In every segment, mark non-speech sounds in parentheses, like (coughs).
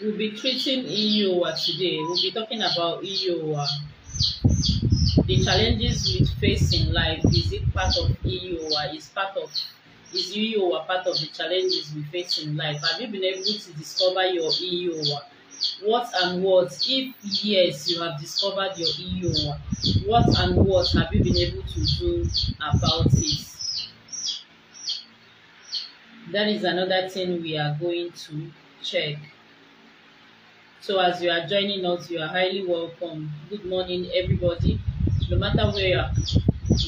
We'll be treating EoA today. We'll be talking about EoA, The challenges we face in life, is it part of EoA? Is part of is EoA part of the challenges we face in life? Have you been able to discover your EoA? What and what? If yes, you have discovered your EoA. what and what have you been able to do about it? That is another thing we are going to check. So as you are joining us, you are highly welcome. Good morning, everybody. No matter where you are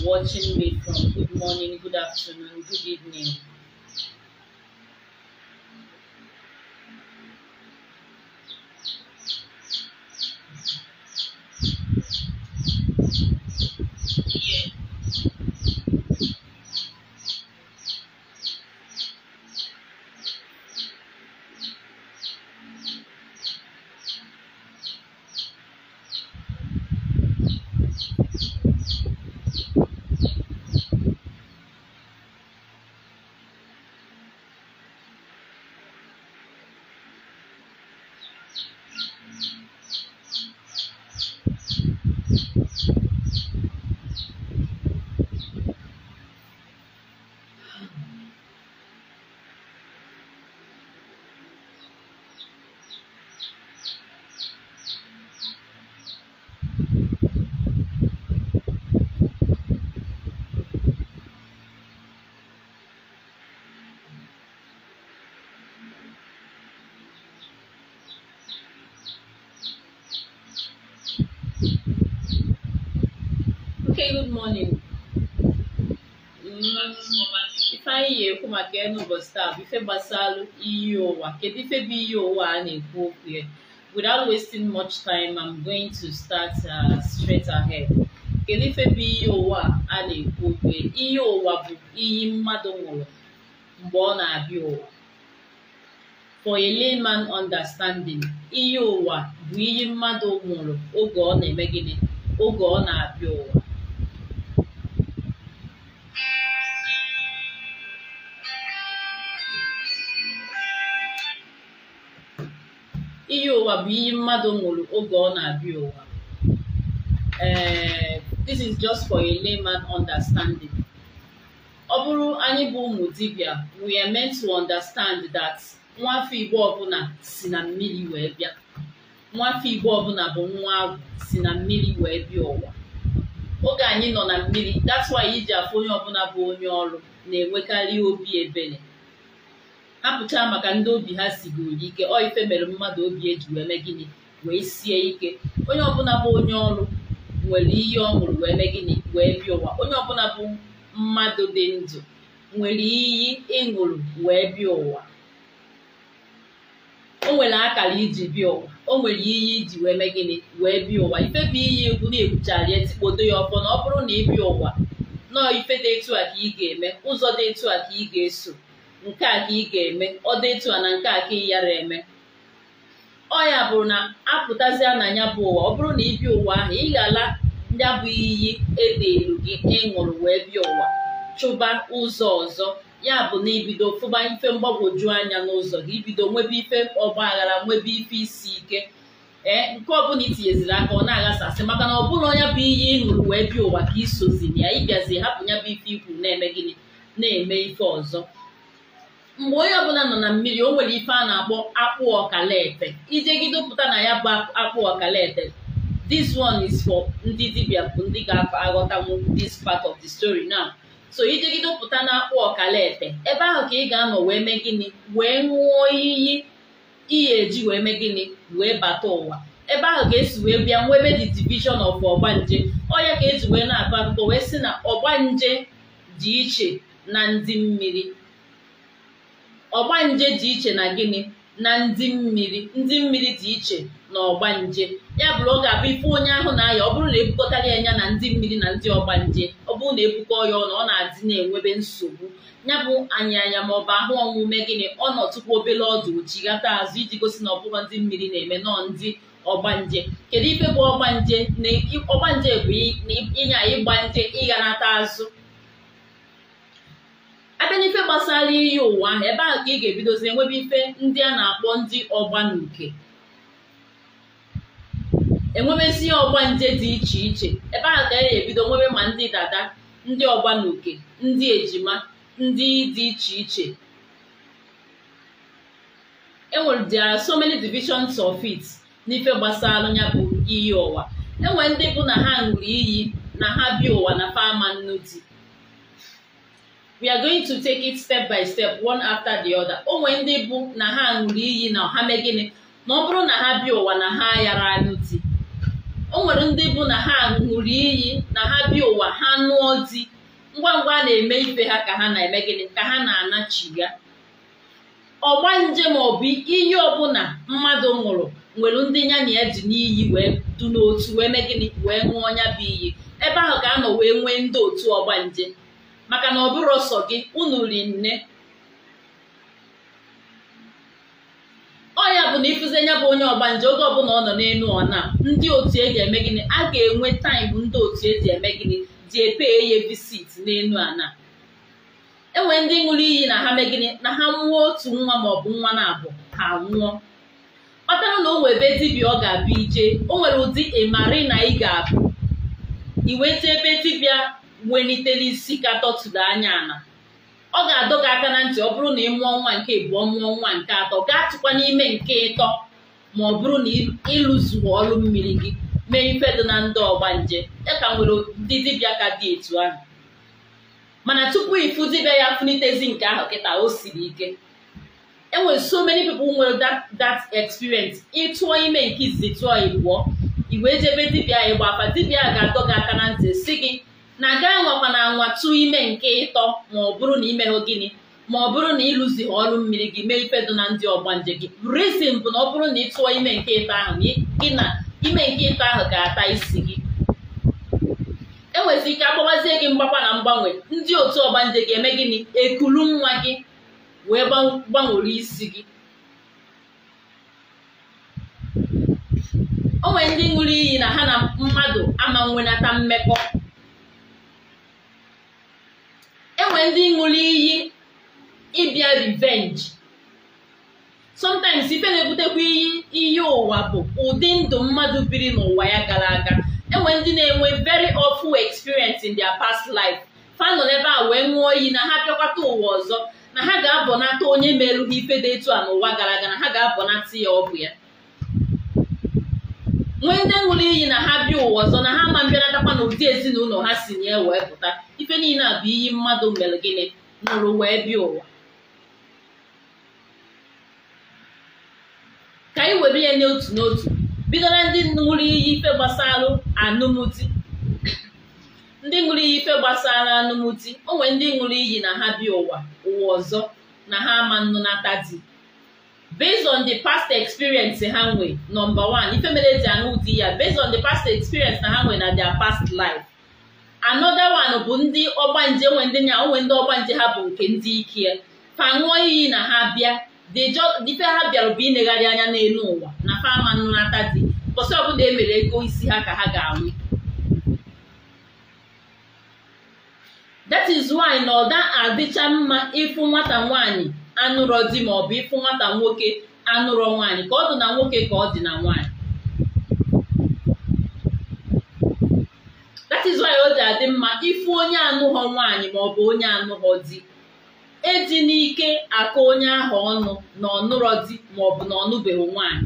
watching me from, good morning, good afternoon, good evening. good morning ifeanyị ga-ekwu maka ya n'ụbọchị taa bụ ife gbasara iyi ụwa kedu ife bụ iyi ụwa a na-ekwu okwu ya without wasting much time i'm going to start uh, straight ahead kedu ife bụ iyi ụwa a na-ekwu okwu ya iyi ụwa bụ iyi mmadụ nwụrụ mgbe ọ na-abịa ụwa for a layman understanding iyi ụwa bụ iyi mmadụ nwụrụ oge ọ na-eme gịnị oge ọ na-abịa ụwa ụwa bụ iyi mmadụ nwụrụ oge ọ na-abịa ụwa this is just for a layman understanding ọ bụrụ anyị bụ ụmụ dibia, we are meant to understand that nwafe igbo ọbụla si na mmiri wee bịa Nwafe igbo ọbụla bụ nwa agwụ si na mmiri wee bịa ụwa oge anyị nọ na mmiri that's why iji afụ onye ọbụla bụ onye ọrụ na-enwekarị obi ebere apụchaa maka ndị obi ha sigoro ike ọ ife mere mmadụ obi eji wee mee gịnị wee sie ike onye ọbụla bụ onye ọrụ nwere ihe ọ ṅụrụ wee mee gịnị wee bịa ụwa onye ọbụla bụ mmadụ dị ndụ nwere iyi ịṅụrụ wee bịa ụwa o nwere akara iji bịa ụwa o nwere iyi iji wee mee gịnị wee bịa ụwa ife bụ iyi egwu na-egwuchara ya tikpodo ya ọfọ na ọ bụrụ na ị bịa ụwa nọọ ife dị etu a ka ị ga-eme ụzọ dị etu a ka ị ga-eso nke a ka ị ga-eme ọ dịtụ a na nke a ka ị yara eme ọ ya bụrụ na apụtazịa na ya bụ ụwa ọ bụrụ na ị bịa ụwa ahụ ị ga-ala ya bụ iyi edeelu gị ịṅụrụ e wee bịa ụwa chụba ụzọ ọzọ ya bụ na ibido fụba ife mgbagwoju anya n'ụzọ gị ibido nwebe ife ọgba aghara nwebe ife isi ike ee nke ọbụla itinyeziri aka ọ na-aghasasị maka na ọ bụrụ ọnya bụ iyi ịṅụrụ wee bia ụwa ka isozi ya ịbịazi hapụ ya bụ ife ikwu na-eme gịnị na-eme ife ọzọ mgbe onye ọbụla nọ na mmiri o nwere ife a na-akpọ akpụ ọkalaete ijegide pụta na ya bụ akpụ ọkalaete this one is for ndị dibịa bụ ndị ga-aghọtanwu this part of the story now so ijegide pụta na akpụ ọkala ete ebe ahụ ka ị ga-anọ wee mee gịnị wee ṅụọ iyi iyi eji wee mee gịnị wee bata ụwa ebe ahụ ka esi wee bịa nwebe the division of ọgbanje ọya ka eji wee na-akọ akụkọ wee sị na ọgbanje dị iche na ndị mmiri ọgbanje dị iche na gịnị na ndị mmiri ndị mmiri dị iche na ọgbanje ya bụrụ oge abụ ife onye ahụ na-aya ọ bụrụ na ebukọtara ya anya na ndị mmiri na ndị ọgbanje ọ bụrụ na ebukọ ya ọnụ ọ na-adị na-enwebe nsogbu ya bụ anyị anya ma ọ bụ ahụ ọnwụme gịnị ọ nọ tupu obele ọdụ chighata azụ iji gosi na ọbụghọ ndị mmiri na-eme nọọ ndị ọgbanje kedu ife bụ ọgbanje na nje bụ ịnya ịgbanje ịghanata azụ abịa n'ife gbasara iyi ụwa ebe ahụ ka ị ga-ebidozi enwebe ife ndị a na-akpọ ndị ọgba na uke enwebezi ọgba nje dị iche iche ebe ahụ ka ga ebido nwebe ma ndị dada ndị ọgba na uke ndị ejima ndị dị iche iche enwere there are so many divisions of it n'ife gbasara ya bụ iyi ụwa enwere ndị bụ na ha ṅụrụ iyi na ha bi ụwa na fa ama di we are going to take it step by step one after the other o nwee ndị bụ na ha ṅụrụ iyi na ha mee gịnị na ọ bụrụ na ha bi ụwa na ha yara anyụ di o nwere ndị bụ na ha ṅụrụ iyi na ha bi ụwa ha nụọ di ngwa ngwa a na-eme ife ha ka ha na-eme gịnị ka ha na-anachiga ọgba nje ma ọ bụ iyi ọbụla mmadụ nwụrụ nwere ndị nya na ya dị n'iyi wee du n'otu wee mee gịnị wee ṅụọ ọnya bụ iyi ebe ahụ ka a nọ wee nwee ndị otu ọgbanje maka na ọ bụrụ gị unu ri nne ya bụ na ịfụzi anya bụ onye ọgbanje oge ọbụla ọ nọ n'elu ọna ndị otu eji eme gịnị a ga-enwe taịm ndị otu eji eme gịnị dị epe ya visit n'elu ana enwe ndị ṅụrụ iyi na ha megịnị na ha nwụọ otu nwa maọbụ nwa na-abụ ha nwụọ kpatara na o nwee ebe dibịa ọ ga-abịa ije o nwere ụdị ịmarị na ị ga-abụ iweta ebe dibịa isi ka katọtụlụ anya na ọ ga-adọ gị aka na ntị ọ bụrụ na ị mụọ nwa nke ịbụọ mụọ nwa nke atọ gaa tụkwa n'ime nke ịtọ ma ọ bụrụ na ịlụzuo ọrụ mmiri gị mee ife dị na ndị ọgba nje ya ka nwere ndị dibịa ka dị etu ahụ mana tupu ịfụ dibịa ya funitezi nke ahụ kịta o siri ike enwere so many pepl nwere that experience ịtụọ ime nke izizi tụọ ịbụọ iwe jebe dibịa ịgba afa dibịa ga-adọ gị aka na ntị si gị na na nwakwana anwatụ ime nke ịtọ ma ọ bụrụ na imeghụ gịnị ma ọ bụrụ na ịlụzi ọrụ mmiri gị mee ife na ndị ọgbanje gị rizin bụ na ọ bụrụ na ị tụọ ime nke ịtọ ahụ gị na ime nke ịtọ ahụ ga-ata isi gị enwezi ike agbawazie gị mgbakwa na mgbanwe ndị otu ọgbanje gị eme gịnị ekulu nwa gị wee gbanwere isi gị onwe ndị ṅụrụ iyi na ha na mmadụ ama nwenata mmekọ nwere ndị ṅụrụ iyi ịbịa rivenji sometimes ife na-ebutekwa iyi iyi ụwa bụ ụdị ndụ mmadụ biri n'ụwa ya gara aga enwe ndị na-enwe very awful experience in their past life fa nọ n'ebe a wee ṅụọ oyi na ha bịakwata ụwa ọzọ na ha ga-abọnata onye merụghị ife dị etu a n'ụwa gara aga na ha ga-abọnata ya ọ ya nwee ndị ṅụrụ iyi na ha bịa ụwa ọzọ na ha ma mbịanatakwa na ụdị ezinụlọ ha si nye wee pụta ife niile a bụ iyi mmadụ mere gịnị nụrụ wee bịa ụwa ka anyị were ya n'otu n'otu bidoro ndị ṅụrụ iyi ife gbasara anụmụdi ndị ṅụrụ iyi ife gbasara o ndị ṅụrụ iyi na ha bịa ụwa ụwa ọzọ na ha ama nnụnata di based on the past experience ha nwe number one ife mere eji anụ ụdị ya based on the past experience na ha nwe na their past life another one bụ ndị ọgbanje nwe ndị nya onwe ndị ọgbanje ha bụ nke ndị ike fa ṅụọ iyi na ha bịa dife ha bịara bụ inegharị anya n'elu ụwa na fama nnata dị mbọsị ọbụla e mere ego isi ha ka ha ga-anwụ that is why na ọ da adịcha mma ịfụ nwata nwaanyị anụrọ di ma ọ bụ ịfụ nwata nwoke anụrọ nwanyị ka ọ dị na nwoke ka ọ dị na nwanyị. that is why adị mma ịfụ onye anụghọ nwanyị ma ọ bụ onye anụghọ di eji n'ike akụ onye ahụ ọnụ na ọnụrọ di ma ọ bụ na ọnụbeghị nwaanyị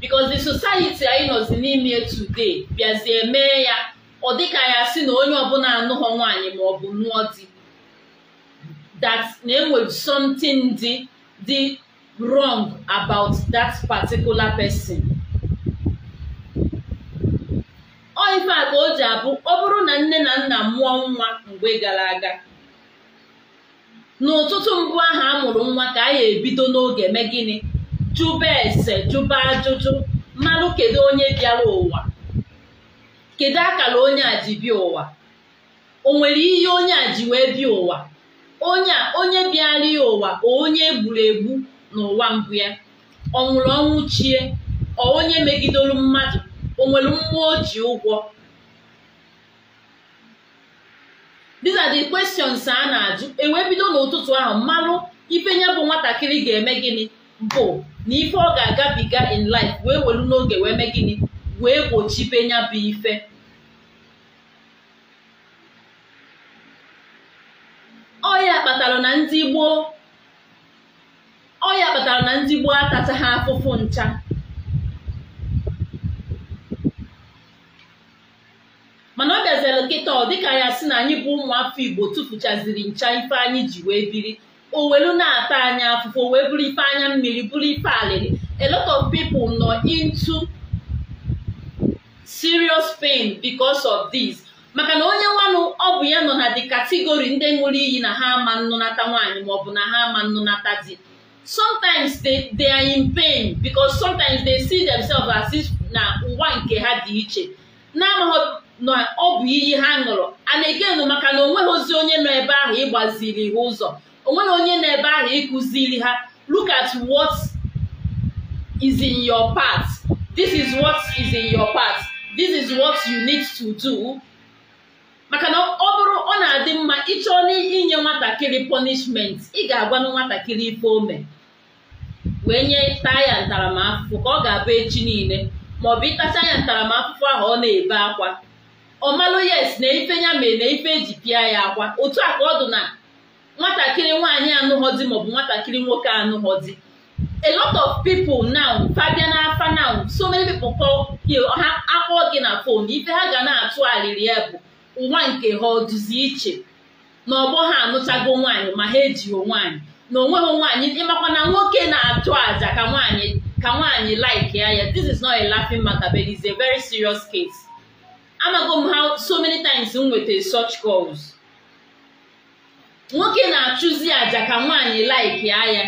because the society anyị nọzi n'ime today bịazie mee ya ọ dịka ya si na onye ọbụla anụghọ nwanyị ma ọ bụ nụọ di that na enwere something dị dị wrong about that particular person ọ ife a ka o ji abụ ọ bụrụ na nne na nna mụọ nwa mgbe gara aga n'ụtụtụ mbụ ahụ a mụrụ nwa ka a ya ebido n'oge eme gịnị jụba ese jụba ajụjụ mmanụ kedu onye bịara ụwa kedu akara onye a ji ụwa o nwere ihe onye a ji wee bịa ụwa onye a onye bịara ụwa onye egburu egbu n'ụwa mbụ ya ọ nwụrụ ọnwụ chie ọ onye megidolu mmadụ o nwere mmụọ o ji ụgwọ these are the questions a na-ajụ ewebido bido n'ụtụtụ ahụ mmalụ ipenya bụ nwatakịrị ga-eme gịnị bụ na ife ọ ga-agabiga in life wee welu n'oge wee mee gịnị wee gbochibe nya bụ ife ọya kpatara na ndị gboo ọya kpatara na ndị gboo atachaghị afụfụ ncha mana ọ bịazere nkịta ọ dịka ya si na anyị bụ ụmụafọ igbo tụfuchaziri ncha ife anyị ji wee biri owelu na-ata anya afụfụ wee bụrụ ife anya mmiri bụrụ ife alịrị a lot of people nọ into serious pain because of this. maka na onye nwanụ ọ bụ ya nọ na dị kategori ndị ṅụrụ iyi na ha ama nnụnata nwaanyị maọbụ na ha ama nnụnata di sometimes they they are in pain because sometimes they see themselves as if na ụwa nke ha dị iche na-amaghị na ọ bụ iyi ha ṅụrụ ana egenu maka na onweghị ozi onye nọ ebe ahụ ịgbaziri ha ụzọ onweghị onye nọ ebe ahụ ịkụziri ha look at what is in your part this is what is in your part this is what you need to do maka na ọ bụrụ ọ na-adị mma ịchọọ n'inye nwatakịrị punishment ị ga-agwanụ nwatakịrị ife ome wee nye taya ntaramahụhụ ka ọ ga-abụ echi niile maọbụ ịtacha ya ntaramahụhụ ahụ ọ na-ebe akwa ọ malụ yes na ife ya mere na ife eji pịa ya akwa otu a ka ọ dị na nwatakịrị nwaanyị anụghọdi maọbụ nwatakịrị nwoke anụghọdi a lot of people now fabia afa now so many people kpọọ ha akpọọ gị na fon ife ha ga na-atụ arịrị ya bụ nwa nke ha ọdụzi iche na ọgbọ ha anụchago nwaanyị ma ha ejighị nwaanyị na onweghị nwaanyị ịmakwa na nwoke na-achụ aja ka nwaanyị ka nwaanyị like ya ya this is not a laughing matter but it's a very serious case amago m so many times m nwetara such calls nwoke na-achụzi aja ka nwaanyị like ya ya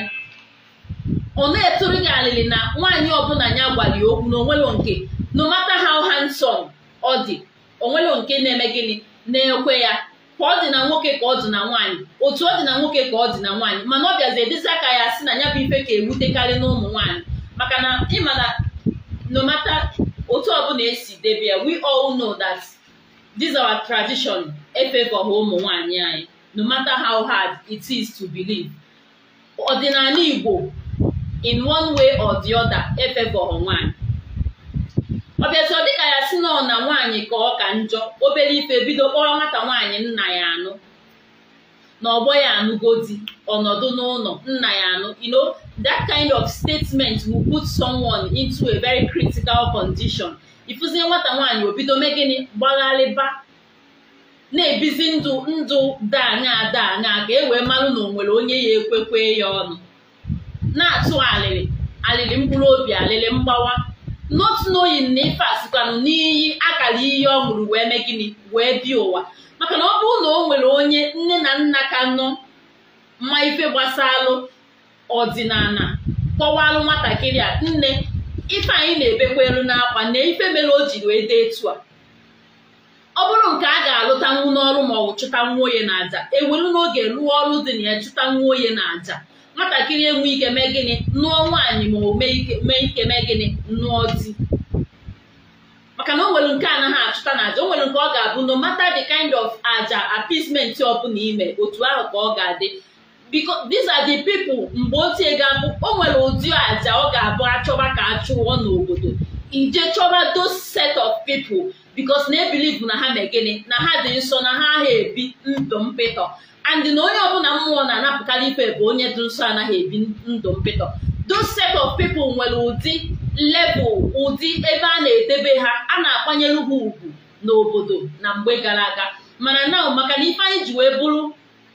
ọ na-etụrụ gị alịlị na nwaanyị ọbụla ya gwali okwu na onwelo nke no matter how handsome ọ dị onwere nke na-eme gịnị na-ekwe ya ka ọ dị na nwoke ka ọ dị na nwaanyị otu ọ dị na nwoke ka ọ dị na nwaanyị mana ọ bịazi edezi aka ya sị na ya bụ ife ka ewutekarị n'ụmụ nwaanyị maka na ịma na no matter otu ọbụla esi debe we all know that this our tradition efevọghị ụmụ nwaanyị anyị no matter how hard it is to believe ọdịnala Igbo in one way or the other efevọghị nwaanyị ọ dịka ya si nọ na nwaanyị ka ọ ka njọ obere ife bido kpọrọ nwata nwaanyị nna ya anụ na ọgbọ ya anụgo di ọnọdụ n'ụlọ nna ya anụ you know that kind of statement will put someone into a very critical condition ịfụzie nwata nwaanyị obido mee gịnị gbagharịba na-ebizi ndụ ndụ daanya daanya ka e wee marụ na onwere onye ya ekwekwe ya ọnụ na-atụ alịrị alịrị mkpụrụ obi alịrị mgbawa not knowing na ife asịkwanụ n'iyi akara iyi ọ ṅụrụ wee mee gịnị wee bi ụwa maka na ọ bụrụ na o nwere onye nne na nna ka nọ mma ife gbasalụ ọdịnala kpọwalụ nwatakịrị a nne ife anyị na-ebekwelu n'akwa na ife mere o jiri wee dee etu a ọ bụrụ nke a ga-alụtanwu n'ọrụ maọbụ nwa onye na aja ewelu n'oge lụọ ọrụ dị na ya chụta nwa onye na aja nwatakịrị enwe ike mee gịnị nụọ nwaanyị ma o mee ike mee gịnị nụọ di maka na o nwere nke anaghị achụta na aja o nwere nke ọ ga-abụ no matter the kind of aja appeasement ọbụla ime otu ahụ ka ọ ga-adị because these are the people mgbe ochie ga-abụ o nwere ụdị aja ọ ga-abụ achọba ka achụọ n'obodo ije chọba those set of people because na-ebilivu na ha megịnị na ha dị nsọ na ha agha ebi ndụ mpịtọ and na onye ọbụla mmụọ na-anapụkarị ife bụ onye dị nsọ anaghị ebi ndụ mpịtọ those set of people nwere ụdị lebụ ụdị ebe a na-edebe ha a na-akwanyere ha ugwu n'obodo na mgbe gara aga mana na maka na ife anyị ji wee bụrụ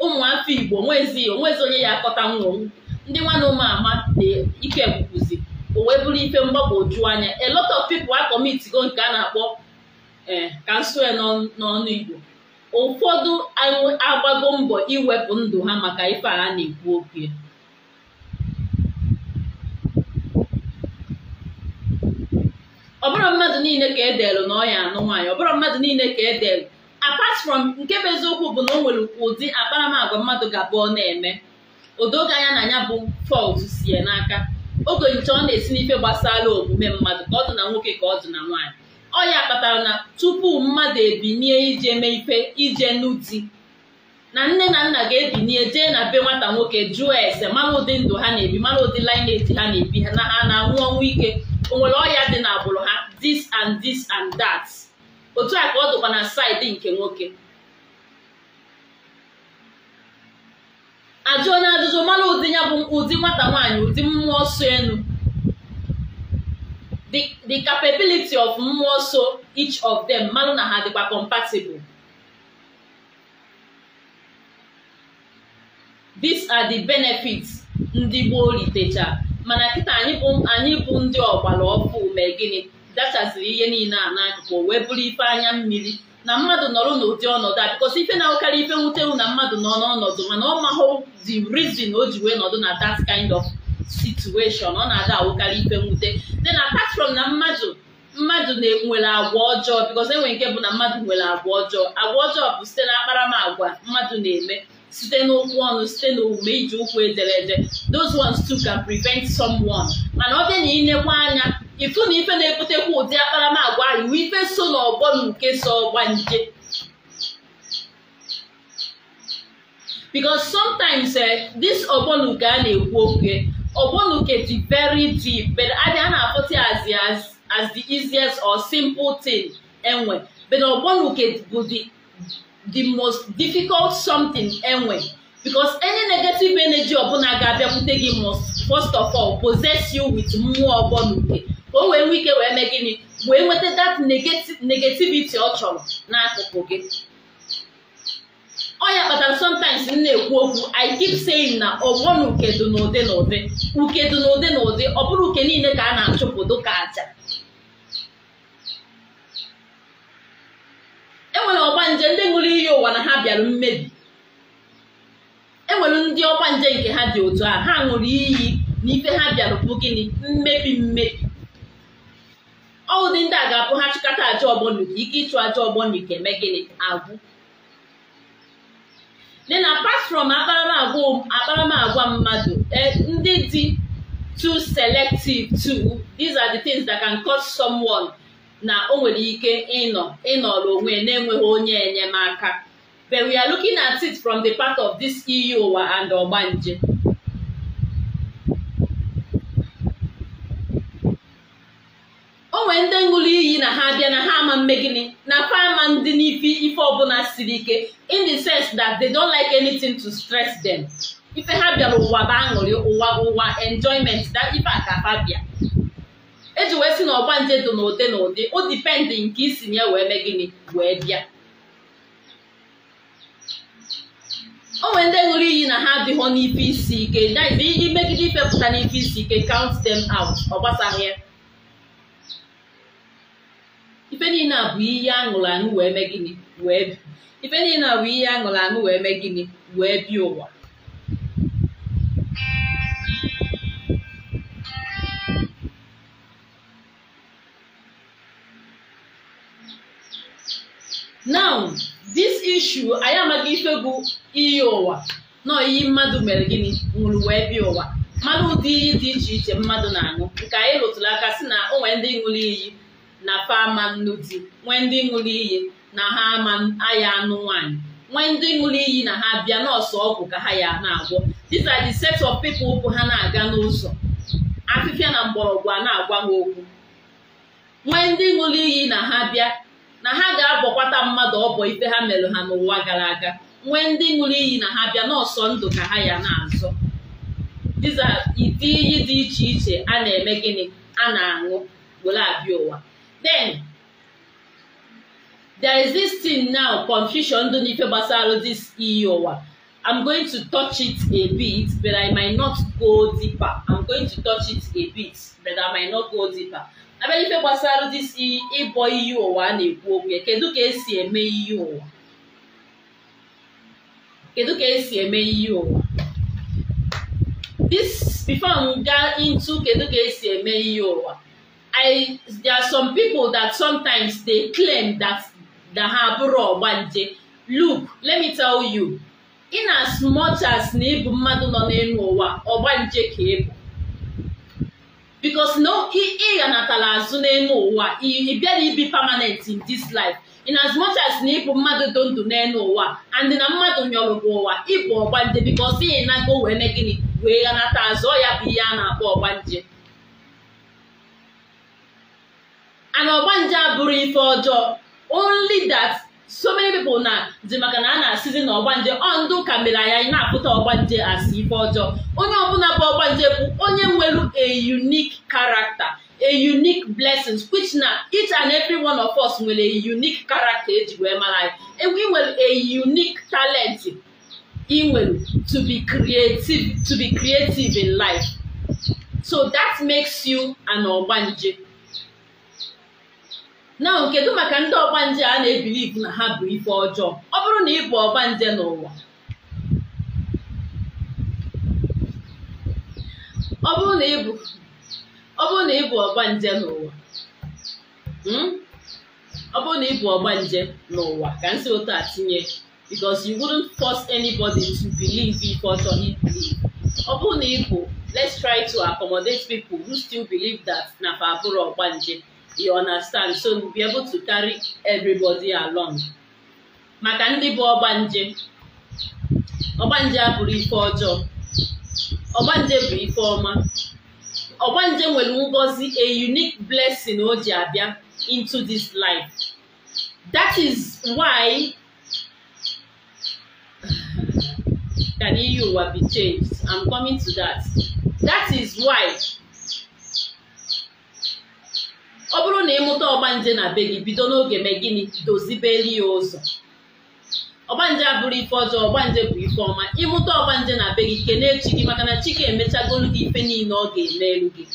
ụmụafọ igbo onwezi onwezi onye ya akọta nwụrụ ndị nwanne ụmụ ama na ike gwukwuzi o wee bụrụ ife mgbagwoju anya a lot of people a nke a na-akpọ ee ka nso n'ọnụ igbo ụfọdụ agbago mbọ iwepụ ndụ ha maka ife a na-ekwu okwu ya ọbụrụ mmadụ niile ka edelụ na ọya anụ nwaanyị ọbụrụ mmadụ niile ka edelụ apart from nke bụ eziokwu bụ na o nwere ụdị akparamagwa mmadụ ga-abụ ọ na-eme odoga anya na anya bụ fault sie n'aka oge nche ọ na-esi n'ife gbasara omume mmadụ ka ọ dị na nwoke ka ọ dị na nwaanyị ọ kpatara na tupu mmadụ ebinie ije mee ife ije nụ na nne na nna ga-ebinie jee na be nwata nwoke jụọ ese mara ụdị ndụ ha na-ebi mara ụdị lineage ha na-ebi ha na ha na-anwụ ọnwụ ike onwere ọya dị na agbụrụ ha this and this and that otu a ka ọ dụkwa na saịdị nke nwoke ajụ onye ajụjụ mara ụdị ya bụ ụdị nwata nwaanyị ụdị mmụọ so enu the capability of mmụọ so each of them mmanụ na ha dịkwa compatible these are the benefits ndị gboo litecha mana kịta anyị bụ ndị ọgbara ọfụ mee gịnị dachaziri ihe niile a n'akụkụ wee bụrụ ife anya mmiri na mmadụ nọrọ n'ụdị ọnọdụ a bikọsi ife na-awụkarị ife nwutewu na mmadụ nọ n'ọnọdụ mana ọ mahụ the reason o ji wee nọdụ na that kind of situation ọ na-ada awụkarị ife nwute dị na from na mmadụ mmadụ nwere agwa ọjọọ because enwere nke bụ na mmadụ nwere agwa ọjọọ agwa ọjọọ bụ site na akparamagwa mmadụ na-eme site n'okwu ọnụ site n'omume iji ụkwụ ederede those ones too can prevent someone mana ọ bịa na ịnekwa anya ịfụ na ife na-ebutekwa ụdị akparamagwa ahụ ife so n'ọgbọ na nke so ọgba nje because sometimes eh, this ọgbọ na nke a na-ekwu oke ogbonuke dị very deep but adị na-afụta as the as, as the easiest or simple thing enwe but ogbonuke bụ the the most difficult something enwe because any negative energy ọbụla ga-abịakwute gị must first of all possess you with mmụọ ogbonuke ka o wee nwee ike wee mee gịnị wee nweta that negativity ọ chọrọ n'akụkụ gị ọ ya kpatara sometimes m na-ekwu okwu i keep saying na ọgbọ na uke dị n'ụdị na ụdị uke dị na ụdị ọ bụrụ uke niile ka a na achụpụ ka aja enwere nje ndị ṅụrụ iyi ụwa na ha bịara mmebi enwere ndị nje nke ha dị otu a ha ṅụrụ iyi na ife ha bịara bụ gịnị mmebi mmebi ọụdị ndị a ga-abụ ha chịkọta aja ọgbọ na ike ịchụ aja ọgbọ na uke mee gịnị agwụ dị na apart from akparamagwa mmadụ eh, ndị dị too selective too these are the things that can cause someone na o nwere ike ịnọ ịnọrọ onwe na-enweghị onye enyemaka but we are looking at it from the part of this iyi e ụwa and ogbanje nwee ndị ṅụrụ iyi na ha bịa na ha ama gịnị na fa ama ndị n'ifi ife ọbụla siri ike in the sense that they don't like anything to stress them ife ha bịara ụwa bụ aṅụrị ụwa ụwa enjoyment that ife a ka bịa eji wee si na ọgba nje dị n'ụdị n'ụdị o dipendị nke isi nye wee mee gịnị wee bịa o nwere ndị ṅụrụ iyi na ha adịghọ n'ife isi ike imegide ife pụta n'ife isi ike count them out ọ gbasaghị ya ife niile a bụ ihe aṅụrụ aṅụ wee mee gịnị wee bi ife niile bụ ihe aṅụrụ aṅụ wee mee gịnị wee bi ụwa now this issue anyị amaghị ife bụ iyi ụwa na iyi mmadụ mere gịnị nwụrụ wee bịa ụwa mmanụ ụdị iyi dị iche iche mmadụ na-aṅụ nke anyị rụtụrụ aka si na o nwere ndị ṅụrụ iyi na fa nnu di nwee ndị ṅụrụ iyi na ha ama aya anụ nwaanyị nwee ndị ṅụrụ iyi na ha bịa nọọsụ ọgwụ ka ha ya na-agwọ these are set of ụkwụ ha na-aga n'ụzọ afịfịa na mgbọrọgwụ a na-agwa ha okwu nwee ndị ṅụrụ iyi na ha bịa na ha ga-abọkwata mmadụ ọbọ ife ha mere ha n'ụwa gara aga nwee ndị ṅụrụ iyi na ha bịa n'ọsọ ndụ ka ha ya na-azọ diza ite iyi dị iche iche a na-eme gịnị a na-aṅụ were abịa ụwa Then, there is this thing now, confusion. Confucius Ndonife Basaro, this e wa? I'm going to touch it a bit, but I might not go deeper. I'm going to touch it a bit, but I might not go deeper. Abenife gbasara dị si ịbọ iyi ụwa a e na-ekwu okwu ya kedu ka esi eme iyi e ụwa kedu ka esi eme iyi ụwa this before m gaa into kedu ka esi eme iyi ụwa I there are some people that sometimes they claim that that ha bụrụ look let me tell you in as much as na ịbụ mmadụ nọ n'elu ụwa ka because no ị ghanatala azụ n'elu ụwa ị bịara ibi permanent in this life in as much as na ịbụ mmadụ dị n'elu ụwa and na mmadụ nyọrọ bụ ụwa ịbụ ọgbanje because ị nago wee gịnị wee ghanata azụ ọ ya bụ ihe a na-akpọ and ọgbanje abụrụ ife ọjọọ only that so many people na dị maka na a na-asịzi na ọgbanje ọndụ ka mere anyị na-apụta ọgbanje asị ife ọjọọ onye ọbụla bụ ọgbanje bụ onye nwere a unique character a unique blessings which na each and every one of us nwere a unique character eji wee mara anyị e, nwere a unique talent ị to be creative to be creative in life so that makes you an ọgbanje na kedu maka ndị ọgbanje a na ebiliv na ha bụ ife ọjọọ ọ bụrụ na ị bụ ọgbanje n'ụwa ọ bụrụ na ị bụ ọgbanje n'ụwa ọ bụrụ na ị ọgbanje hmm? n'ụwa ka m si a tinye because you wouldn't force anybody to believe ife ọjọọ he ọ bụrụ na ị bụ let's try to accommodate people who still believe that na fa abụrụ ọgbanje you understand so you'll be able to carry everybody along maka ndị bụ ọgbanje ọgbanje abụrụ ife ọjọọ ọgbanje bụ ife ọma ọgbanje nwere ngozi a unique blessing o ji abịa into this life that is why (sighs) can you be changed i'm coming to that that is why ọ bụrụ na ịmụta ọgbanje na be gị bido n'oge mee gịnị dozibeli ya ụzọ ọgbanje abụrụ ife ọjọọ ọgbanje bụ ife ọma ịmụta ọgbanje na be gị kelee chi gị maka na chike ga-emechagolu gị ife niile ọ ga-emelu gị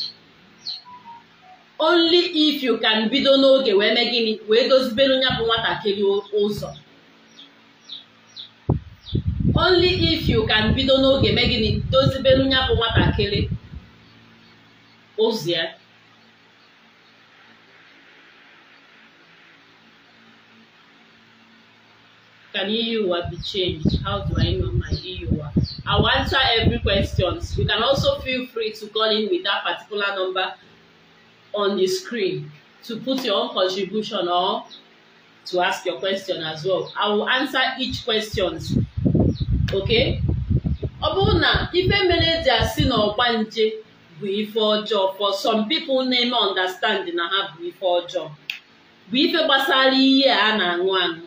only if you can bido n'oge wee mee gịnị wee dozibelu ya bụ nwatakịrị ụzọ only if you can bido n'oge mee gịnị dozibelu ya bụ nwatakịrị ụzọ ya can EUWA be changed? How do I know my I e I'll answer every question. You can also feel free to call in with that particular number on the screen to put your own contribution or to ask your question as well. I will answer each question. Okay? Ọ bụrụ na ife mere eji asị na nje bụ ife ọjọọ for some people na-eme understand na ha bụ ife ọjọọ bụ ife gbasara ihe a na-aṅụ aṅụ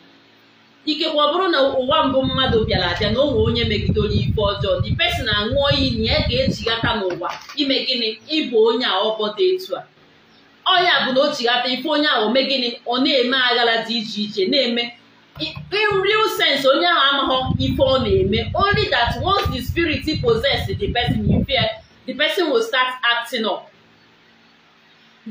ikekwe ọ bụrụ na ụwa mbụ mmadụ bịara abịa na onwe onye megidere ife ọjọọ dị pesin aṅụọ iyi na ya ga-ejighata n'ụwa ime gịnị ịbụ onye a ọbọta etu a ọnya bụ na o ife onye ahụ ome gịnị ọ na-eme aghara dị iche iche na-eme real sense onye ahụ amaghọ ife ọ na-eme only that once the spirit possess the person you fear the person will start acting up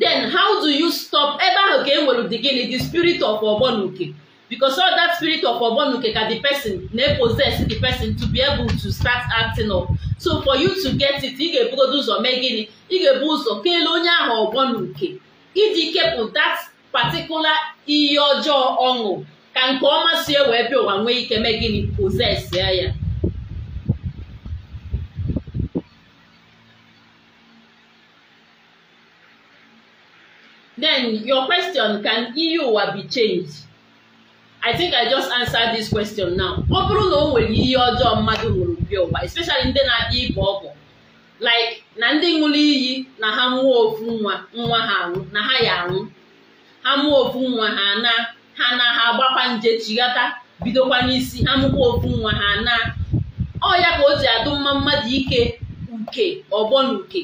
then how do you stop ebe ahụ ka e nwere dị gịnị the spirit of ọgbọ na oke because all that spirit of ogbonuke ka the person na possess the person to be able to start acting up so for you to get it ị ga-ebugodo ụzọ mee gịnị ị ga-ebu ụzọ kelee onye ahụ ogbonuke iji kepụ that particular ihe ọjọọ ọṅụ ka nke ọma sie wee bịa ụwa nwee ike mee gịnị possess ya ya then your question can iyi e ụwa be changed I think I just answered this question now. ọ bụrụ na o nwere ihe ọjọọ mmadụ ṅụrụ bi ụwa especially ndị na-abịa ibe ọgwụ like na ndị nwụrụ iyi na ha mụọ ofu nwa nwa ha anwụ na ha ya anwụ ha mụọ ofu nwa ha na ha na ha agbakwa nje chighata bidokwa n'isi ha mụkwa ofu nwa ha na ọ ya ka o ji adụ mma mmadụ ike uke ọgbọ na uke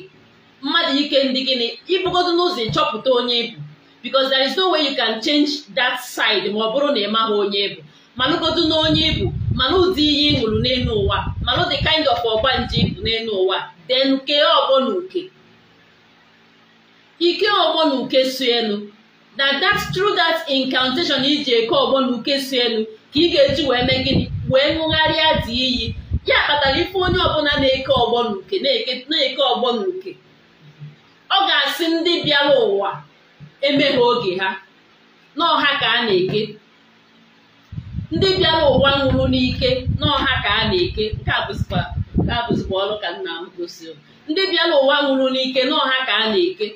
mmadụ ike ndị gịnị ịbụgodo n'ụzọ ịchọpụta onye ịbụ because there is no way you can change that side ma ọ bụrụ na ị maghị onye bụ manụgodu na onye ibu mana ụdị ihe ị ṅụrụ n'elu ụwa mana the kind of ọgba nje ịbụ n'elu ụwa then kee ọgbọ na uke ike ọgbọ na uke so elu na that through that incantation iji eke ọgbọ na uke so elu ka ị ga-eji wee mee gịnị wee ṅụgharịa dị iyi ya kpatara ife onye ọbụla na-eke ọgbọ na uke na-eke ọgbọ na uke ọ ga-asị ndị bịara ụwa eme ha oge ha n'ọha ka a na-eke ndị bịara ụwa nwụrụ n'ike n'ọha ka a na-eke nke a bụzikwa ọrụ ka nna m gosiri ndị bịara ụwa nwụrụ n'ike n'ọha ka a na-eke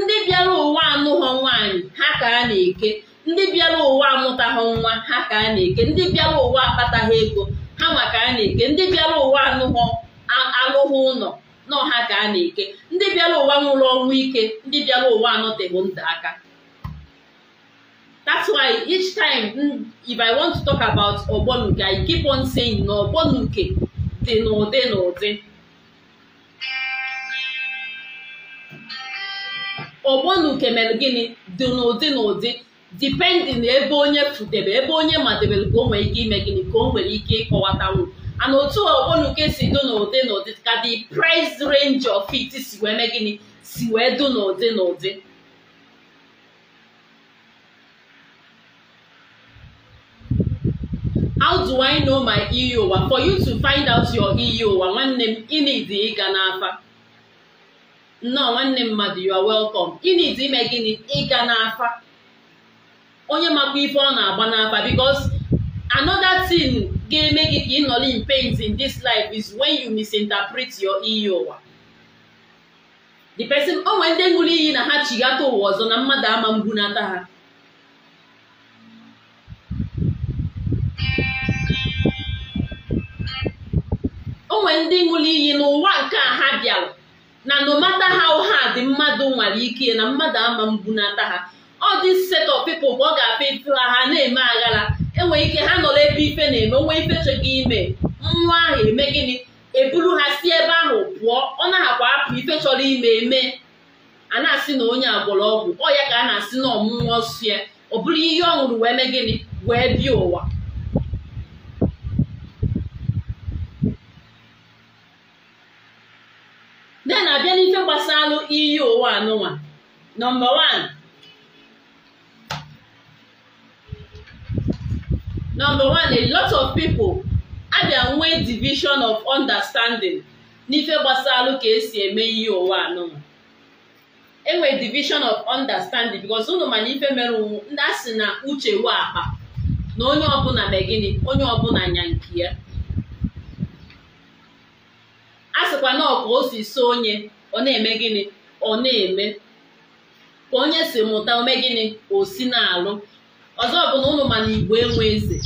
ndị bịara ụwa anụghọ nwaanyị ha ka a na-eke ndị bịara ụwa amụtaghọ nwa ha ka a na-eke ndị bịara ụwa akpataghị ego ha nwa ka a na-eke ndị bịara ụwa anụghọ alụghị ụlọ nọọ ka a na-eke ndị bịara ụwa nwụrụ ọnwụ ike ndị bịara ụwa anọtebụ ndụ aka that's why each time mm, if I want to talk about ogbonuke I keep on saying na ogbonuke dị n'ụdị n'ụdị ogbonuke mere gịnị dị n'ụdị n'ụdị depending ebe onye fudebe ebe onye madebere ka o nwere ike ime gịnị ka o nwere ike ịkọwatanwu and otu nke si dụ n'ụdị n'ụdị ka the price range of it si wee mee gịnị si wee dụ n'ụdị n'ụdị how do I know my iyi e ụwa for you to find out your iyi e ụwa nwanne m ịnidi ịga n'afa nnọọ nwanne m mmadụ you are welcome ịnidi ime gịnị ịga n'afa onye makwa ife ọ na-agba n'afa because another thing ga-eme gị ka ịnọrọ in pains in this life is when you misinterpret your iyi e ụwa the person o nwere ndị ṅụrụ iyi na ha chighata ụwa ọzọ na mmadụ ama mbunata ha o nwere ndị ṅụrụ iyi n'ụwa nke a ha bịara na nomata ha ụha dị mmadụ nwere ike na mmadụ ama mbunata ha ọ dị set of people bụ ọ ga-abịa ịtụla ha na-eme aghara enwere ike ha nọrọ ebe ife na-eme nwa ife chọghị ime nwa ahụ eme gịnị eburu ha si ebe ahụ pụọ ọ akwa apụ ife chọrọ ime eme a na-asị na onye agwọrọ ọgwụ ọ ya ka a na-asị na ọmụmụ ọsụ ya ọ bụrụ ihe ọ ṅụrụ wee mee gịnị wee bịa ụwa de na-abịa n'ife gbasara iyi ụwa anụwa. nọmba 1 Number one, a lot of people abịa nwee division of understanding n'ife gbasara ka esi eme ihe ụwa anụnụ enwere division of understanding because ụnụ ife mere ndị a si na uche wee akpa na onye ọbụla megide onye ọbụla nya nke ya a sịkwa na ọka o si so onye ọ na-eme gịnị ọ na-eme ka onye si mụta ome gịnị o si na-alụ ọzọ bụ na ụnụ igbo enwe eze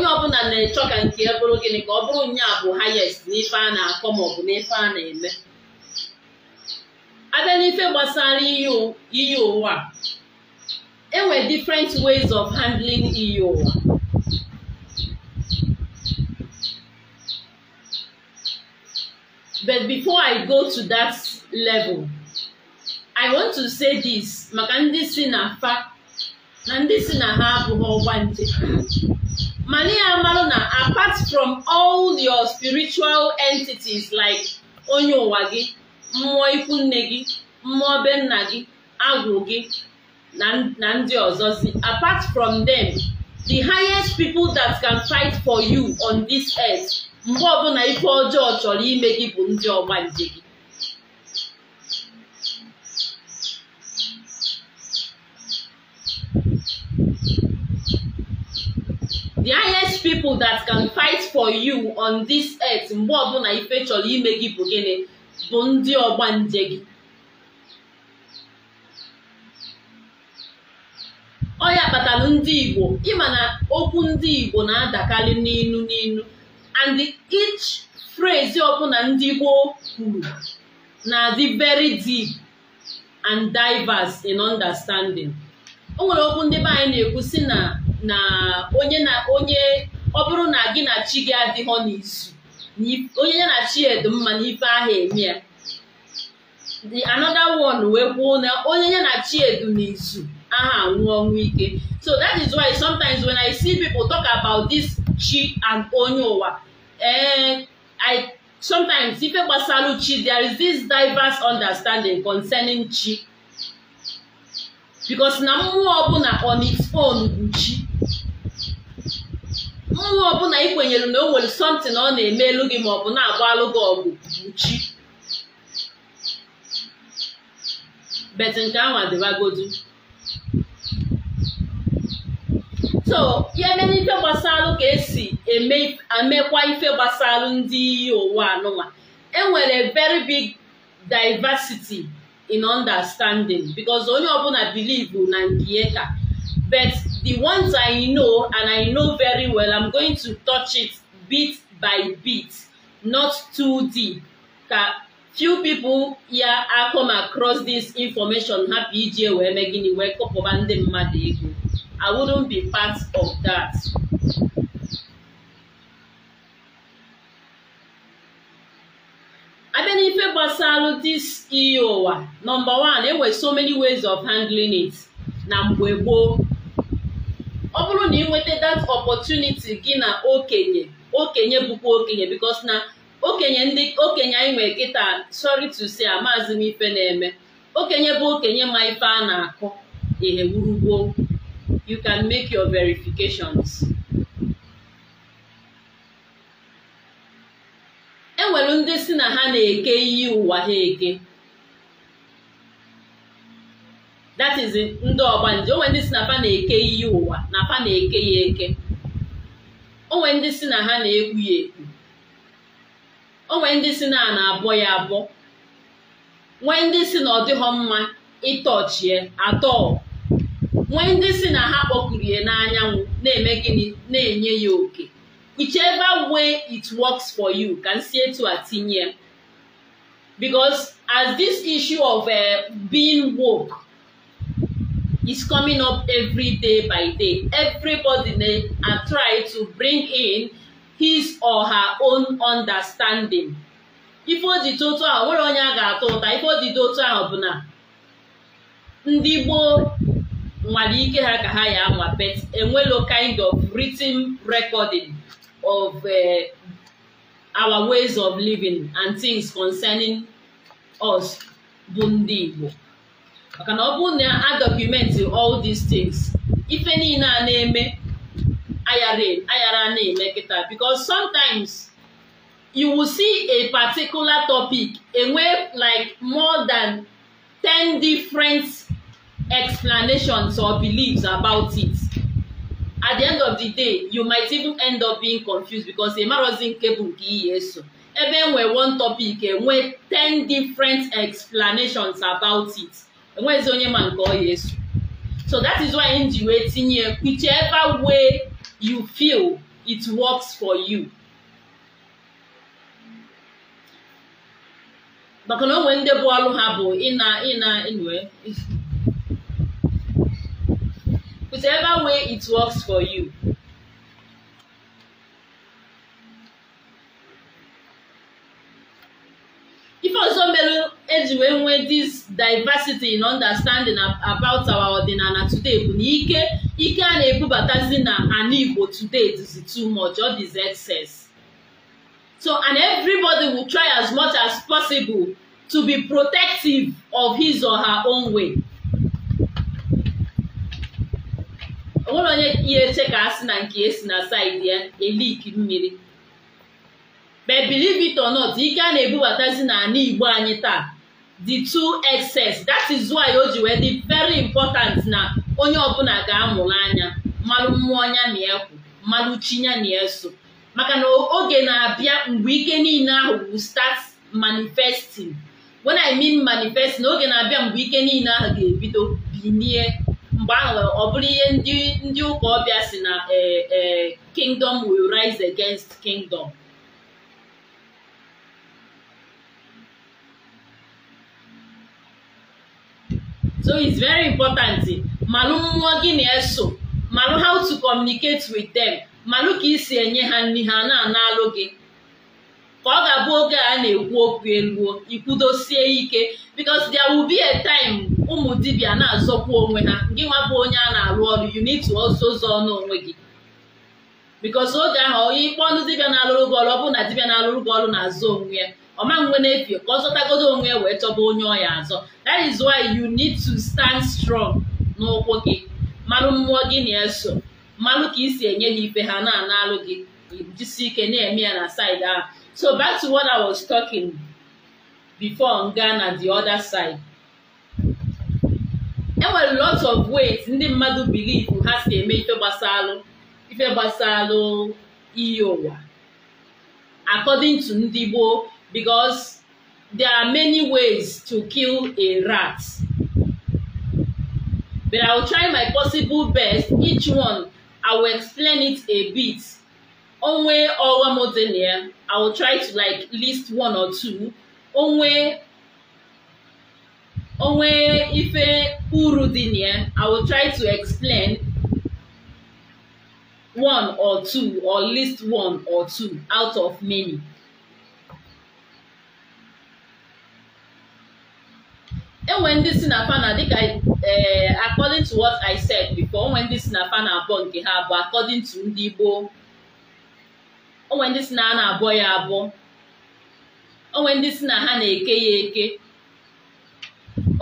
onye ọbụla na achọ ka nke ya bụrụ gịnị ka ọ bụrụ nya bụ highest n'ife a na-akọ maọbụ n'ife a na-eme abịa n'ife gbasara iyi ụwa enwe different ways of handling iyi ụwa but before I go to that level I want to say this maka ndị si na fa na ndị si na ha abụghị ọgba nje mana ya na apart from all your spiritual entities like onye ụwa gị mmụọ ikwu nne gị mmụọ be nna gị agwụ gị na ndị ọzọ si, apart from them the highest people that can fight for you on this earth mgbe ọbụla ife ọjọọ chọrọ ime gị bụ ndị ọgbanje gị people that can fight for you on this earth mgbe ọbụla ife chọrọ ime gị bụ gịnị bụ ndị nje gị ọ ya kpatara ndị Igbo ịma na okwu ndị Igbo na-adakarị n'inu n'inu and each phrase ọbụla ndị gboo kwuru na-adị very deep and diverse in understanding o nwere okwu ndị be anyị na-ekwu si na na onye na onye ọ bụrụ na gị na chi gị adịghọ n'izu onye ya na chi edu mma n'ife ahụ eme ya the another one wee kwuo na onye ya na chi edu n'izu aha anwụ ọnwụ ike so that is why sometimes when I see people talk about this chi and onye ụwa eh I sometimes ife gbasara chi there is this diverse understanding concerning chi because na mmụọ ọbụla on its own nwa ọbụla ị kwenyere na o nwere something ọ na-eme elu gị ma ọ bụ na-agba alụ gị ọgụ chi. bet nke ahụ adịbagodu so ya mere ife gbasalụ ka esi emekwa ife gbasalụ ndị iyi ụwa anụnwa enwere very big diversity in understanding because onye ọbụla bilivu na nke ka bet The ones I know and I know very well, I'm going to touch it bit by bit, not too deep. Ka few people ya I come across this information ha ije wee mee gịnị wee kọpụba ndị mmadụ ego. I wouldn't be part of that. abịa n'ife gbasara iyi ụwa e number one, enwere so many ways of handling it na mgbe gboo ọ bụrụ na ị nweta that opportunity gị na okenye okenye bụkwa okenye bịkọs na okenye ndị okenye anyị nwere kịta sorry to say amaazị m ife na-eme okenye bụ okenye ma ife a na-akụ ihe gburugburu you can make your verifications enwere ndị si na ha na-eke iyi ụwa ha eke that is ndị ọgbanje onwe ndị si na fa na-eke iyi ụwa na fa na-eke ya eke onwe ndị si na ha na-ekwu ya ekwu onwe ndị si na na-abọ ya abọ nwee ndị si na ọ dịghọ mma ịtọchie atọ nwee ndị si na ha kpọkuru ya n'anyanwụ na-eme gịnị na-enye ya oke whichever way it works for you ka nsi etu a tinye because as this issue of eh, being woke is coming up every day by day. Everybody na are to bring in his or her own understanding. Ife ojite otu ahụ nwere onye a ga-atọ ụta ife ojite otu ahụ bụ na ndị gboo nwere ike ha ka ha ya anwa but enwelo kind of written recording of uh, our ways of living and things concerning us bụ ndị Igbo maka na ọ bụrụ na a dọkụmenti all these things ife niile a na-eme ayara e, na-eme kịta because sometimes you will see a particular topic enwe like more than 10 different explanations or beliefs about it at the end of the day you might even end up being confused because ịmarọzi nke bụ nke iyi eso ebe enwe one topic enwe 10 different explanations about it enweghịzi onye ma nke ọ ya eso so that is why m ji wee tinye whichever way you feel it works for you maka na onwe ndị bụ ọrụ ha bụ ịna ịna enwe whichever way it works for you ife ọzọ mere eji wee nwee this diversity in understanding about our ọdịnala today bụ na ike ike a na-ebubatazi na ana Igbo today dịzi too much ọ dịzi excess so and everybody will try as much as possible to be protective of his or her own way. onwere onye ihe eche ka a sị na nke esi na saịdị ya eliki mmiri but believe it or not ike a na-ebubatazi n'ala igbo anyị taa di two excess that is why o ji wee dị very important na onye ọbụla ga-amụrụ anya mmalụ mmụọ nya na ya kwu mmalụ chi na ya maka na oge na-abịa mgbe ike niile ahụ bụ start manifesting when I mean manifesting oge na-abịa mgbe ike niile ahụ ga-ebido binie mgbe ahụ ọ bụrụ ihe ndị ụka ọbịa si na eh, eh, kingdom will rise against kingdom so it's very important malụ mmụọ gị na-eso malụ how to communicate with them malụ ka isi enye ha nri ha na-analụ gị ka ọ ga-abụ oge a na-ekwu okwu eluo ikwudosie ike because there will be a time ụmụ dibia na-azọkwa onwe ha gị nwa bụ onye a na-arụ ọrụ you need to also zọọ n'onwe gị because oge ahụ onye ikpe ọnụ dibia na-alụrụ gị ọrụ ọ bụ na dibia na-alụrụ gị ọrụ na azụ onwe ya ma nwe na-efie ka ọ zọtagodo onwe wee chọba onye ọya azọ that is why you need to stand strong n'ụkwụ gị malụ mmụọ gị na-eso malụ ka isi enye ha ife ha na alụ gị jisi ike na-eme ya na side ahụ so back to what I was talking before nga na the other side enwere lot of ways ndị mmadụ bilivu ha si eme ife gbasalụ ife gbasalụ iyi ụwa according to ndị gboo because there are many ways to kill a rat. But I will try my possible best. Each one, I will explain it a bit. Onwe way or more I will try to like list one or two. Onwe Ife one way if I will try to explain one or two or list one or two out of many. enwe ndị si na fana dịka ee eh, according to what I said before onwe ndị si na fana abụọ nke ha bụ according to ndị Igbo onwe ndị si na ha na-abụọ ya abụọ onwe ndị si na ha na-eke ya eke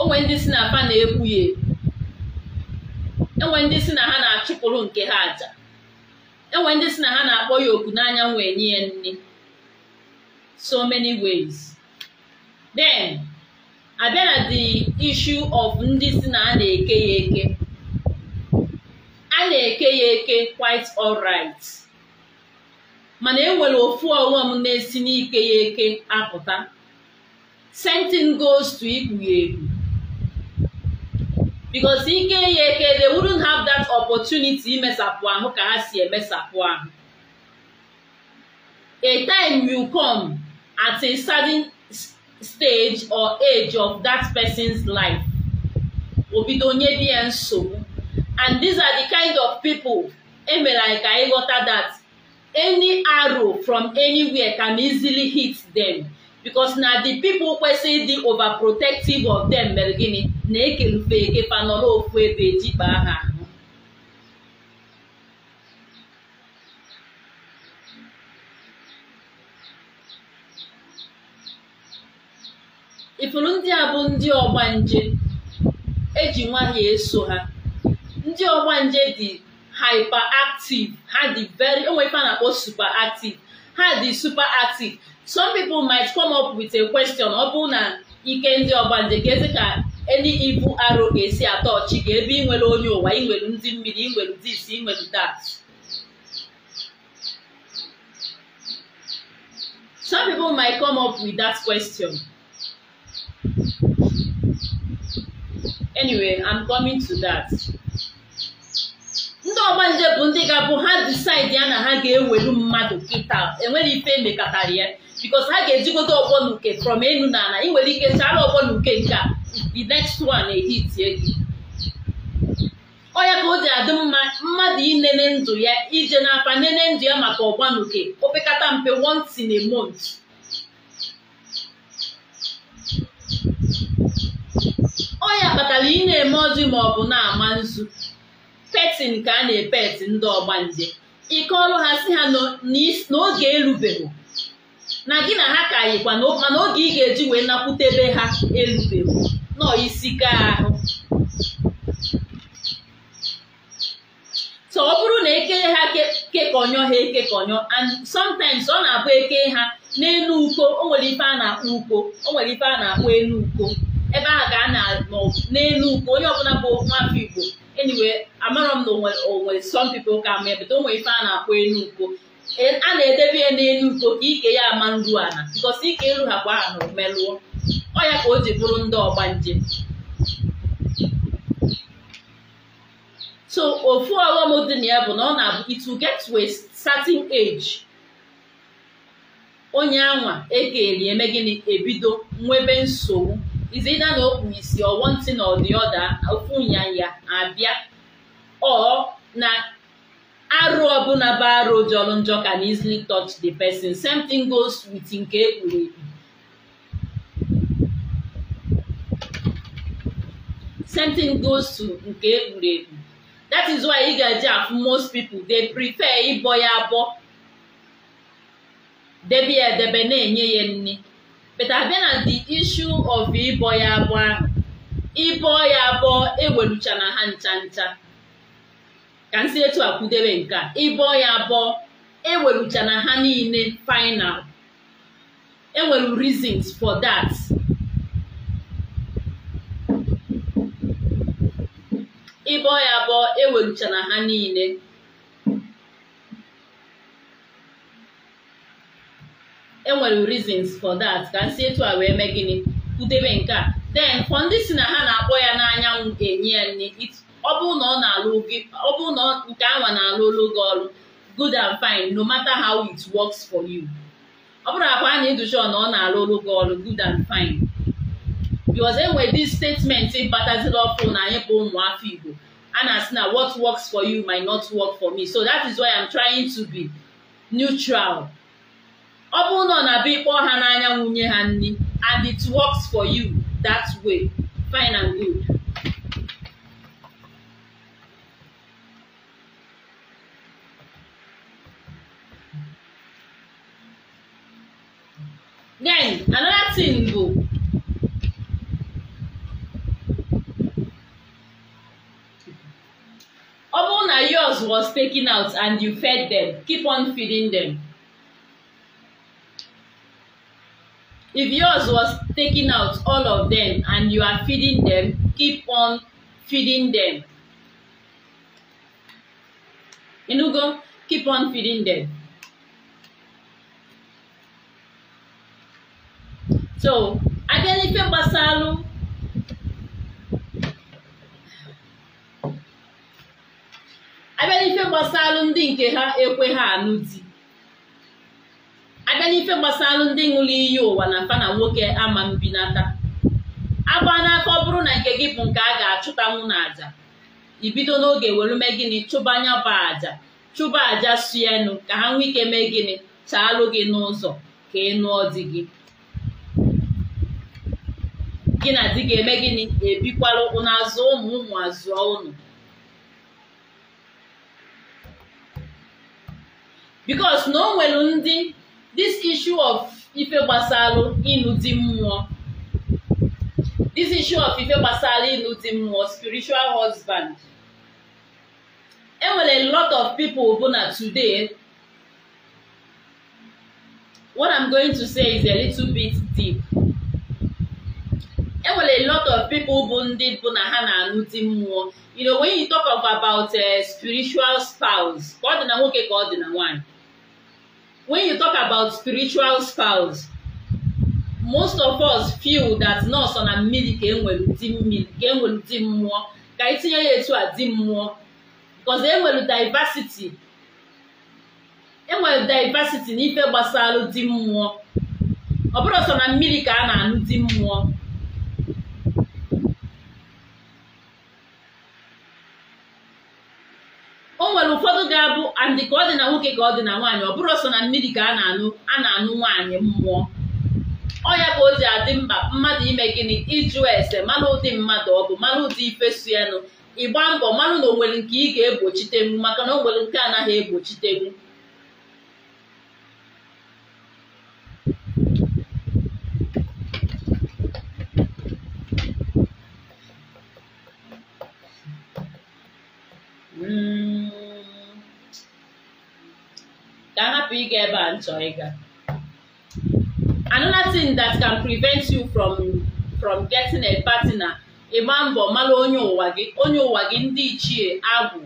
onwe ndị si na fa na-ekwu ya enwe ndị si na ha na-achụpụrụ nke ha aja enwe ndị si na ha na-akpọ ya oku n'anya enye nye nne so many ways then abịa na the issue of ndị si na a na-eke ya eke a na-eke ya eke quite alright mana enwere ofu ọghọm na-esi n'ike ya eke apụta sentin goes to ikpu ya egwu. because ike ya eke they wouldn't have that opportunity imesapụ ahụ ka ha si emesapụ ahụ a time will come at a sudden. stage or age of that person's life o bido nye nsogbu and these are the kind of people emere anyị ka anyị that any arrow from anywhere can easily hit them because na the people kwesịrị over overprotective of them mere gịnị na-ekerufe ekepa nọrọ ofu ebe jikpa ha ifuru ndị a bụ ndị ọgbanje eji nwanyị eso ha ndị ọgbanje dị hyperactive ha dị very onwe ife super na ha dị superactive some people might come up with a question ọ bụrụ na ike ndị ọgbanje ga-ezi ka eni ibu aro ga-esi atọ ọchị ga ebe nwere onye ụwa inwere ndị mmiri inwere this inwere that some people might come up with that question anyway i'm coming to that ndị ọgbanje bụ ndị ga-abụ ha disaidi ya na ha ga-ewelu mmadụ kịta enwere ife emekọtara ya bikos ha ga-ejigodo ọgbọ na uke from enu na ala ị nwere ike chara ọgbọ na uke nke a the next one ehitie gị ọya ka o ji adị mma mmadụ inene ndụ ya ije n'afa nene ndụ ya maka ọgbanuke opekata mpe once in a month ọ ya kpatara ị na-eme ozi ma ọ bụ na-ama nzu petin ka a na-epeti ndị ọgbanje ike ọrụ ha si ha n'oge erubeghị na gị na ha ka yikwa mana oge ị ga-eji wee nakwutebe ha erubeghị nọ isi ka ahụ ọ bụrụ na eke ha kekọnyọ ha ekekọnyọ and sometimes ọ na-abụ eke ha n'elu uko o nwere ife a na-akpọ uko o nwere ife a na-akpọ elu uko ebe a ka a na n'elu ugwu onye ọbụla bụ nwafọ Igbo enyiwe amarọ m na onwere some ka ma bụta o ife a na-akpọ elu ukwo e- a na-edebe ya n'elu ukwo ka ike ya ama nru ala bikos ike iru ha bụ aha na omelụọ ọ ya ka o ji bụrụ ndị ọgba ọgbanje so ofu ọghọm dị na ya bụ na ọ na-abụ it will get to a age onye anwa eke eri eme gịnị ebido nwebe nsogbu is either na o kpuru isi or one thing or the other ofu nyanya abịa or na arụ ọbụla bụ arụ jọrọ njọ na easily touch the person same thing goes with nke ekpuru ekpu same thing goes to nke ekpuru ekpu that is why ị ga-eji afụ most people they prefer ịbọ ya abọ debe ya edebe na-enye ya nne. but abịa na the issue of ịbọ ya abọ ịbọ ya abọ ewelucha na ha ncha ncha ka nsi etu a kwudebe nke ịbọ ya abọ ewelucha na ha niile final enwere reasons for that ịbọ ya abọ ewelucha na ha niile enwere reasons for that ka m etu a wee mee gịnị kwutebe nke a then for ndị si na ha na-akpọ ya n'anyanwụ enye ya nne ọ bụrụ na nke anwa na-alụ olu ọrụ good and fine no matter how it works for you ọ bụrụ akwa a na-educha na ọ na-alụ olu ọrụ good and fine because enwere this statement bataziri ọkụ na anyị bụ ụmụafọ Igbo a na-asị na what works for you might not work for me so that is why I'm trying to be neutral ọ bụrụ na ọ na-abịa ịkpọ ha n'anya nwunye ha nri and it works for you that way fine and good then another thing go ọ bụrụ na yours was taken out and you fed them keep on feeding them. If yours was taking out, all of them, and you are feeding them, keep on feeding them. Inugo, keep on feeding them. So, abịa n'ife gbasalụ abịa n'ife gbasalụ ndị nke ha ekwe ha anụ di abịa n'ife gbasara ndị ṅụrụ iyi ụwa na mpa na nwoke ama mbinata agba n'aka ọ bụrụ na nke gị bụ nke a ga-achụtanwu na aja ibido n'oge were mee gịnị chụba anya bụ aja chụba aja suenu ka ha nwee ike mee gịnị chaalụ gị n'ụzọ ka ị nụọ gị gị na di ga-eme gịnị ebikwala ụnụ ụmụ ụmụ ụnụ bikos na o nwere ndị this issue of ife gbasalụ ịnụ di mmụọ this issue of ife gbasara ịnụ di mmụọ spiritual husband enwere lot of people bụ na today what i'm going to say is a little bit deep enwere lot of people bụ ndị bụ na ha na-anụ di mmụọ you know when you talk of about a eh, spiritual spouse ka ọ dị na nwoke ka ọ dị na nwanyị when you talk about spiritual spouse most of us feel that nọọsụ na mmiri ka enwere di mmiri ka enwere di mmụọ ka anyị ya etu a di mmụọ because enwere diversity enwere diversity n'ife gbasara di mmụọ ọ bụrụ na mmiri ka a na-anụ di mmụọ o nwere ụfọdụ ga-abụ andị ka ọ dị na nwoke ka ọ dị na nwaanyị ọ bụrụ sọ na mmiri ka a na-anụ a na-anụ nwaanyị mmụọ ọ ya ka o ji adị mkpa mmadụ ime gịnị ịjụ ese mara ụdị mmadụ ọ bụ mara ụdị ifesu ịgba mbọ mmanụ na nwere nke ị ga egbochitegbu maka na nwere nke anaghị egbochitegbu ka hapụ ịga ebe a nchọ ịga another thing that can prevent you from from getting a partner ịgba mbọ mara onye ụwa gị onye ụwa gị ndị ichie agwụ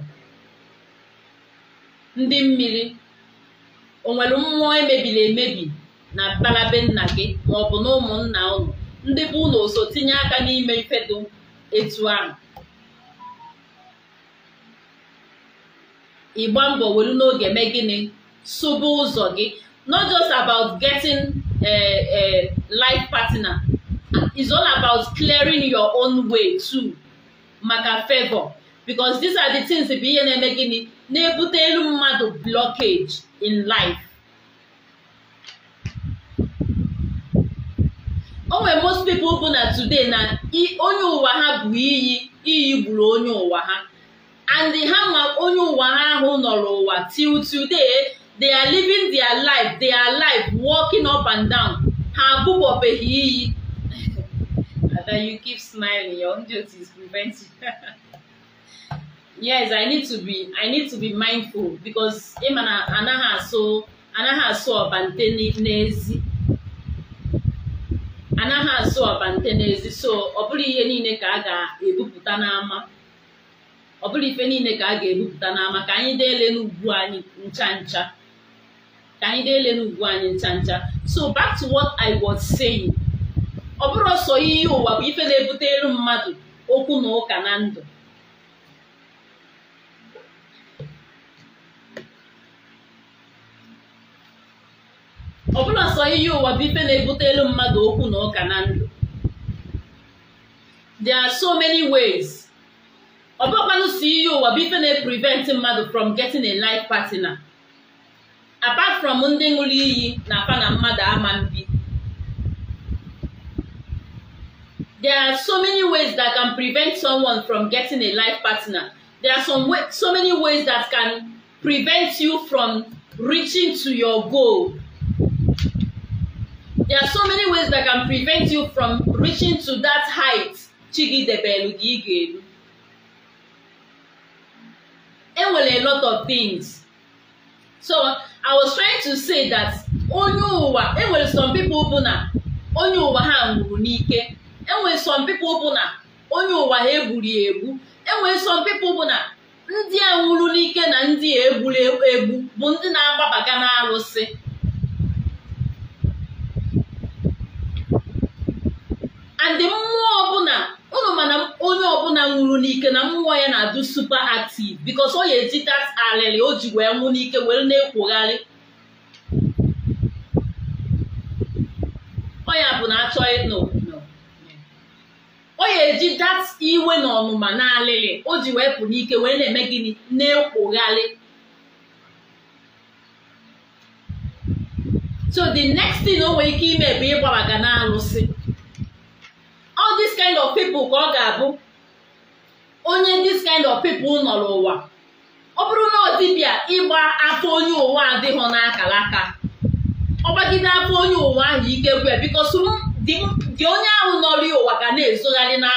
ndị mmiri onwere nwere mmụọ emebiri emebi na mkpalabe nna gị ma ọ bụ na ụmụnna ụnụ ndị bụ ụlọ oso tinye aka n'ime ifedo etu ahụ ịgba mbọ were n'oge mee gịnị sụba ụzọ gị not just about getting a, a life partner is all about clearing your own way too maka favor because these are the things bụ ihe na-eme gịnị na elu mmadụ blockage in life onwe most people bụ na today na onye ụwa ha bụ iyi iyi gburu onye ụwa ha and ha ma onye ụwa ha ahụ nọrọ ụwa till today they are living their life they are alive, walking up and down her boob ope yiyi (laughs) ada you keep smiling your own guilt is preventing (laughs) yes i need to be i need to be mindful because emana anaghị asụ anaghị asụ ọbante n'ezi anaghị asụ ọbante n'ezi so ọ bụrụ ihe niile ka a ga-ebupụta n'ama ọ bụrụ ife niile ka a ga-ebupụta n'ama ka anyị deelenu ugbu anyị ncha ncha ka anyị na-elele ugwu anyị ncha ncha so back to what I was saying ọ bụrụ sọ ihe ụwa bụ ife na-ebute elu mmadụ okwu na ụka na ndụ ọ bụrụ sọ ihe ụwa bụ ife na-ebute elu mmadụ okwu na ụka na ndụ there are so many ways ọ bụrụkwanụ si ihe ụwa bụ ife na-prevent mmadụ from getting a life partner apart from ndị ṅụrụ iyi na afa na mmadụ ama mbi there are so many ways that can prevent someone from getting a life partner there are some way, so many ways that can prevent you from reaching to your goal there are so many ways that can prevent you from reaching to that height chigidebelu gị ga-eru enwere a lot of things so I was trying to say that onye ụwa enwere some people bụ na onye ụwa ha nwụrụ n'ike enwere some people bụ na onye ụwa ha egburu egbu enwere some people bụ na ndị a nwụrụ n'ike na ndị a egburu egbu bụ ndị na-agbabaga n'alụsị and mmụọ ọbụla unu mana onye ọbụla nwụrụ n'ike na mmụọ ya na-adụ supa active bikos ọ ya eji alịlị o ji wee nwụ n'ike were na-ekwogharị ọ ya bụ na achọ ọ ya eji that iwe na ọnụma na alịlị o ji wee pụ n'ike wee na-eme gịnị na-ekwogharị so the next thing o nwere ike ime bụ ịgbabaga na alụsị all this kind of people ka ọ ga-abụ onye this kind of people nọ n'ụwa ọ bụrụ na ọ dịbịa ịgba afọ onye ụwa adịghị n'akara aka ọgbagide afọ onye ụwa ahụ ike kwe bikos dị onye ahụ nọrọ ụwa ga na-ezogharị na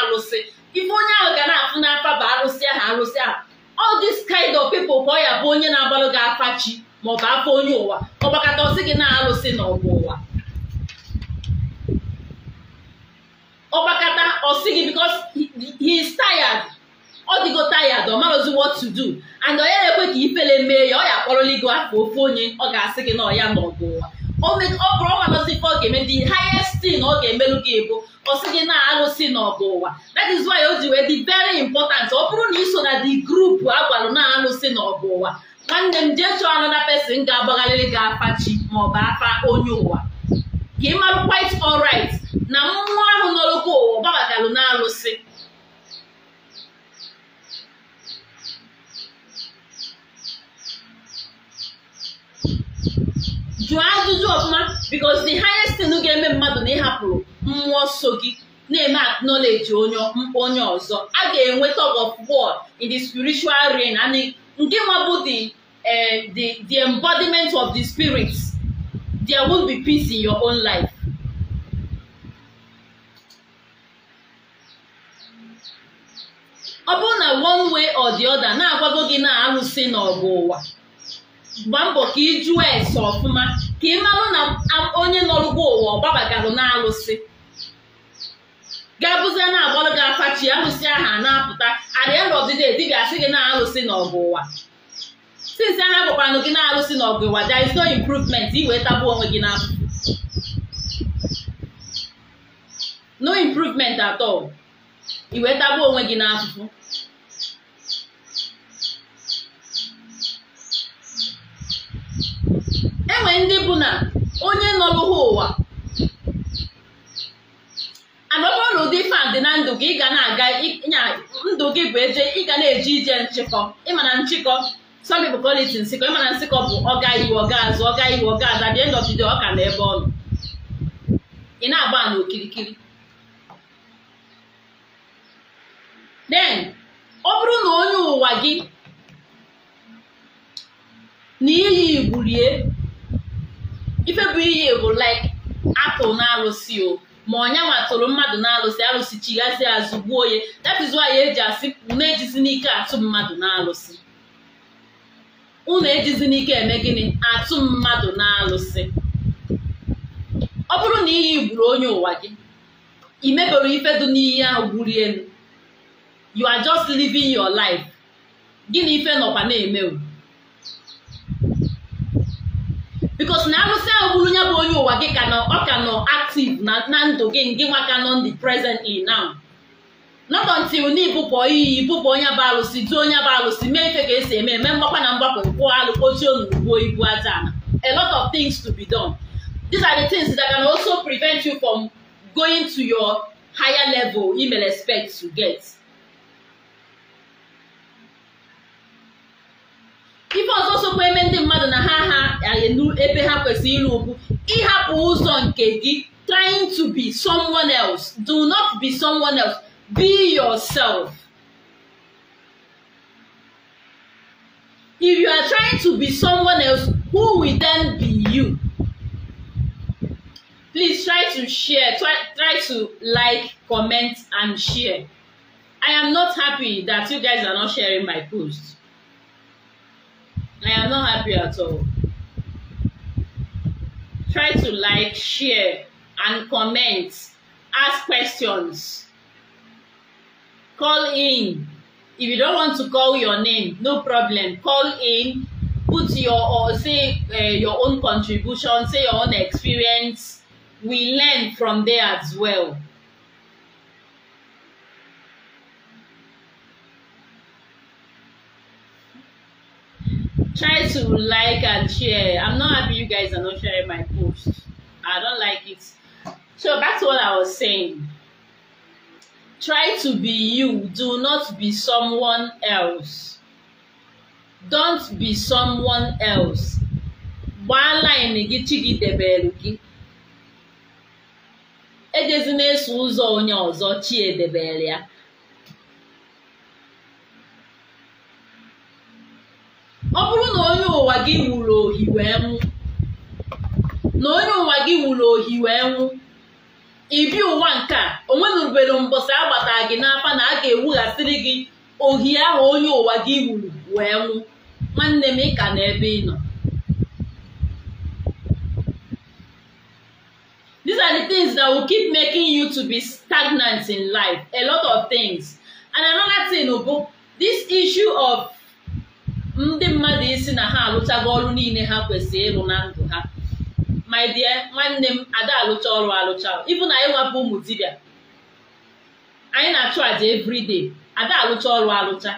ife onye ahụ ga na-afụ n'afa bụ arụsị ahụ arụsị ahụ all this kind of people ka ọ ya bụ onye na-agbalụ gị afa chi maọbụ afọ onye ụwa ọgbakọta ọsị gị na arụsị n'ọgụ ụwa ọgbakọta ọsighi because he is tired ọ dịgo tired ọ marozi what to do and ọ ya ekwe ka ifele mee ya ọ ya akpọrọla gị afọ ofe onye ọ ga-asị gị na ọya n'ọgụ ụwa ọ bụrụ ọ ọ ga-eme dị highest tin ọ ga-emelụ gị bụ ọ sị gị na-alụsị n'ọgụ ụwa that is why o ji wee dị very important ọ bụrụ na iso na the group agwalụ na-alụsị n'ọgụ ụwa nwanne m jee chọọ another pesin ga-agbagharịrị gị afa chi maọbụ afa onye ụwa ka ị marụ quite na mmụọ ahụ nọrọkwa ụwa gbabagalụ na jụọ ajụjụ ọfụma because the highest thing ga-eme mmadụ na ịhapụrụ mmụọ so gị na-eme acknowledge onye onye ọzọ a ga-enwe tug of war in the spiritual realm and nke nwabụ eh, the the embodiment of the spirit there will be peace in your own life ọ bụrụ na one way or the other na-agwago gị na arụsị n'ọgụ ụwa gba mbọ ka ị jụọ ese ọfụma ka ị marụ na onye nọrụgo ụwa ọ na arụsị ga na-agbalụ gị afachi arụsị ahụ a na-apụta arianọdide di ga-asị gị na arụsị n'ọgụ ụwa since aha gwakwanụ gị na arụsị n'ọgụ ụwa there is no improvement ị wee onwe gị n'afọ no improvement at all ị wee onwe gị n'afụfụ enwe ndị bụ na onye nọlụha ụwa anọbụrụ na ụdị fan dị na ndụ gị ị ga na-aga nya ndụ gị bụ eje ị ga na-eje ije nchịkọ ịma na nchịkọ some people call nsịkọ ịmana na nsịkọ bụ ọga iwu ọga azụ ọga iwu ọga aza dị ndọbido ọka na ebe nọ ị na-agba n'okirikiri. then ọ bụrụ na onye ụwa gị na iyi rie, ife bụ iyi bụ like apụl na alụsị o ma ọnyanwa tụrụ mmadụ na alụsị alụsị chigazi azụ gbuo ya that is eji asị unu ejizi n'ike atụ mmadụ na alụsị unu ejizi n'ike eme gịnị atụ mmadụ na alụsị ọ bụrụ na iyi gburu onye ụwa gị imebere ife dị n'iyi ahụ gburu elu you are just living your life gịnị ife nọkwa na-eme because na arụsị ahụ bụrụ ya bụ onye ụwa gị ka nọ ọ ka nọ active na ndụ gị nke nwa ka nọ ndị present in now not until na ibụpụ iyi ibụpụ onye bụ arụsị dị onye bụ arụsị mee ife ka esi eme eme mgbakwa na mgbakọ kwụọ alụ kpochie onugbuo ibu aja a lot of things to be done these are the things that can also prevent you from going to your higher level you may expect to get ife ọzọ sokwa eme ndị mmadụ na ha ha elu ebe ha kwesịrị ịrụ ugwu ịhapụ ụzọ nke gị trying to be someone else do not be someone else be yourself if you are trying to be someone else who will then be you please try to share try, try to like comment and share i am not happy that you guys are not sharing my post I am not happy at all. Try to like, share, and comment. Ask questions. Call in. If you don't want to call your name, no problem. Call in. Put your or say uh, your own contribution, say your own experience. We learn from there as well. try to like and share. I'm not happy you guys are not sharing my post. I don't like it. So back to what I was saying. Try to be you. Do not be someone else. Don't be someone else. gbaala ịnị gị chi gị debere gị ejezina eso ụzọ onye ọzọ chi edebere ya ọ bụrụ na onye ụwa gị wuru ohi wee nwụ na onye ụwa gị wuru ohi wee nwụ ibi ụwa nke a onwenubere mbọsị agbata gị n'afa na a ga-ewughasịrị gị ohi ahụ onye ụwa gị wuru wee nwụ nwanne m ịka na ebe ị nọ These are the things that will keep making you to be stagnant in life. A lot of things. And another thing, this issue of ndị mmadụ isi na ha alụchago ọrụ niile ha kwesịrị ịrụ na ndụ ha my dear nwanne m ada alụcha ọrụ alụcha ịbụ na anyị nwapụ ụmụ dibịa anyị na-achụ àjà everyday ada alụcha ọrụ alụcha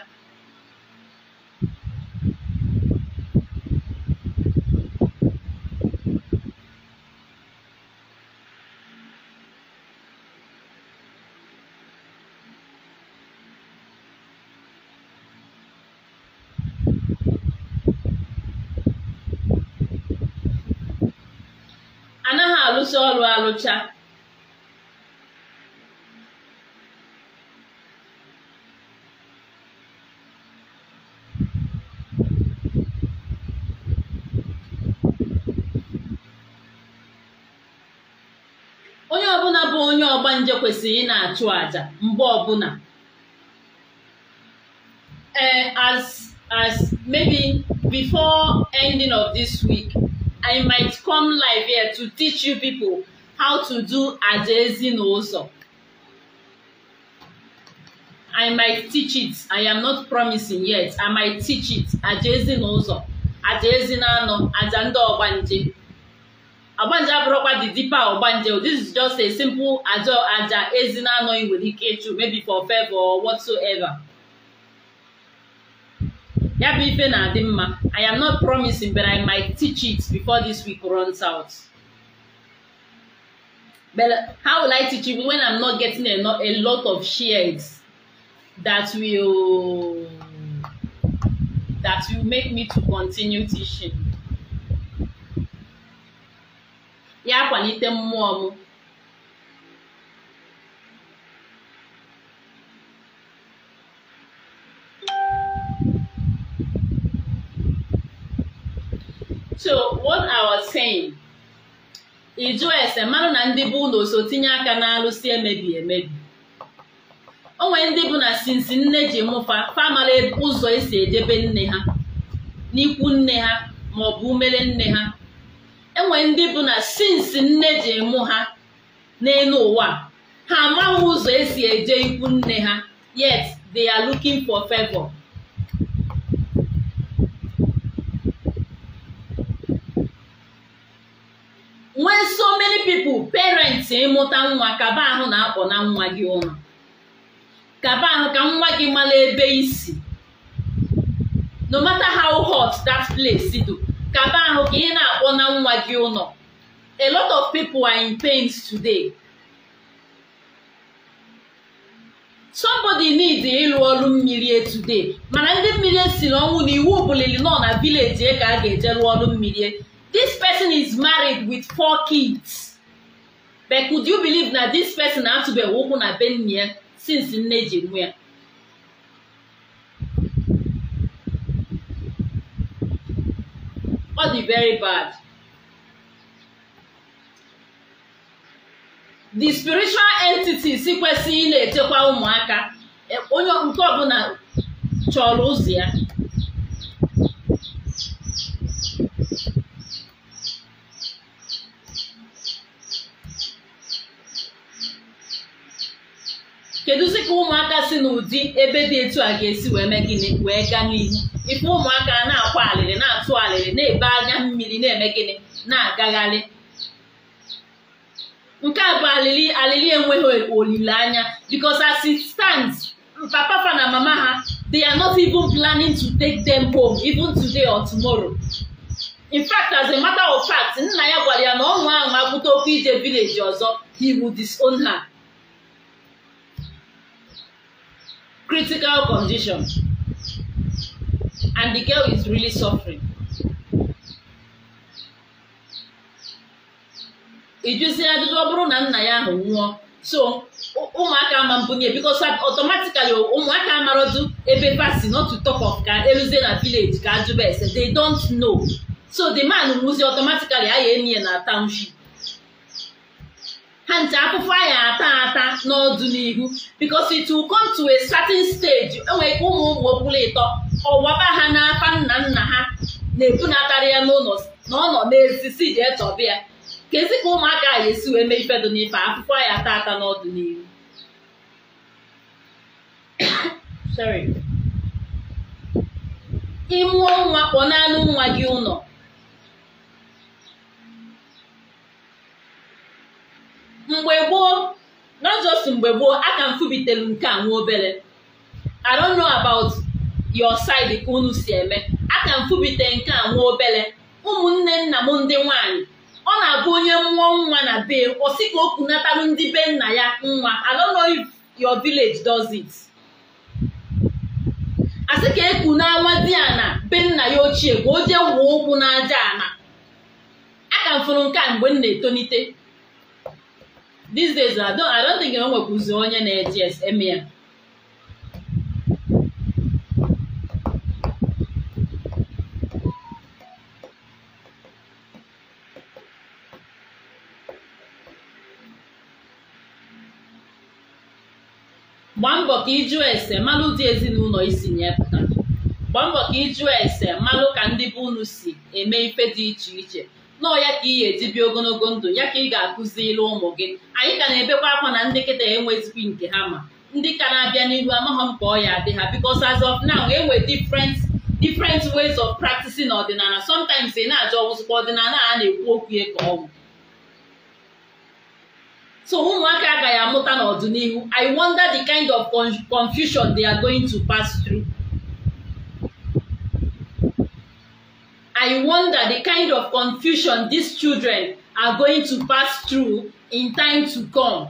arụsị ọrụ alụcha onye ọbụla bụ onye ọgba nje kwesịrị ịna na-achụ aja mgbe ọbụla eh, as as maybe before ending of this week I might come live here to teach you people how to do aja ezinụzọ. I might teach it. I am not promising yet. I might teach it. Aja ezinụzọ, aja ezinanọ, aja ndị ọgbanje. Ọgbanje abụrụkwa the deeper ọgbanje. This is just a simple aja aja ezinanọ ị nwere ike ịchụ maybe for favor or whatsoever. ya bụ ife na-adị mma i am not promising but i might teach it before this week runs out but how will i teach it when i'm not getting enough a lot of shares that will that will make me to continue teaching ya kwalite mmụọ m so what I was saying ịjụ mmanụ na ndị bụ na oso tinye aka na si emebi emebi o ndị bụ na sinsi nne ji mụfa famara ụzọ esi edebe nne ha n'ikwu nne ha maọbụ umere nne ha enwere ndị bụ na sinsi nne ji mụ ha n'elu ụwa ha amaghị ụzọ esi eje ikwu nne ha yet they are looking for favor. nwee so many people parents ịmụta nwa kaba ahụ na-akpọ na nwa gị ụlọ kaba ahụ ka nwa gị mara ebe isi no matter how hot that place do kaba ahụ ka ị na-akpọ na nwa gị ụlọ a lot of people are in pains today somebody need ịlụ ọrụ mmiri today mana ndị mmiri si ọnwụ na iwu bulili nọ na village e ka a ga-eje lụọ ọrụ mmiri this person is married with four kids but could you believe that this person na-atụbeghị ụkwụ na be nne ya since nne ji nwe ya ọ very bad the spiritual entities kwesịghị ị na-echekwa ụmụaka onye nke ọbụla chọrọ ụzọ ya kedụzi ka ụmụaka si n'ụdị ebe dị etu a ga-esi wee mee gịnị wee gaa n'ihu ife ụmụaka na-akwa alịrị na-atụ alịrị na-ebe anya mmiri na-eme gịnị na-agagharị nke a bụ alili alili enweghị olileanya because as it papa papa na mama ha they are not even planning to take them home even today or tomorrow. in fact as a matter of fact nna ya gwara ya na ọnwa ahụ apụta okwu ije village ọzọ he would disown her. critical condition and the girl is really suffering. Ijusi adịdị ọ bụrụ na nna ya ahụ nwụọ so ụmụaka ama mbunye because automatically ụmụaka amarodu ebe pasi not to talk of ka eruzie na village ka ajụba ese they don't know so the man nwụzi automatically a ya enyi ya na township ha nji akwụkwọ anyị ata ata n'ọdịnihu bikos it will come to a certain stage enwere ike ụmụ ụmụ okpuru ịtọ ọwaba ha n'aka nna nna ha na-ebunatara ya n'ụlọ na ọ nọ n'ezisi jee chọba ya kezi ka ụmụaka ga esi wee mee ifedo n'ife akpụkpọ anyị ata ata n'ọdịnihu (coughs) ịmụọ nwa kpọ naanị nwa gị ụlọ mgbe gboo not mgbe gboo aka m nke a nwa obere i don't know about your side ka unu si eme aka m nke a nwa obere ụmụnne nna m ndị nwanyị ọ na-abụ onye mmụọ nwa na be osi sị ka o ndị be nna ya nwa i don't know if your village does it asị ka eku na nwa di ana be nna ya ochie ka o jee wuo ụkwụ n'aja ana aka m nke a mgbe m na-etonite these days I don't, I don't think o nwekwuzi onye na-eji eme ya gbaa mbọ ka ịjụ ese malụ dị ezinụlọ isi nye pụta gbaa mbọ ka ịjụ ese malụ ka ndị bụ unu si eme ife dị iche iche nọọ ya ka ị ga-eji ogologo ndụ ya ka ị ga ilu ụmụ gị anyị ka na-ebekwa akwa na ndị kịta enwezikwa nke ha ma ndị ka na-abịa n'ihu amaghọ m ka ọ ya adị ha because as of now enwe different different ways of practicing ọdịnala sometimes ị na-ajụ ọwụzụkwa ọdịnala a na-ekwu okwu ya ka ọnwụ so ụmụaka agaghị amụta n'ọdịnihu I wonder the kind of confusion they are going to pass through. I wonder the kind of confusion these children are going to pass through in time to come.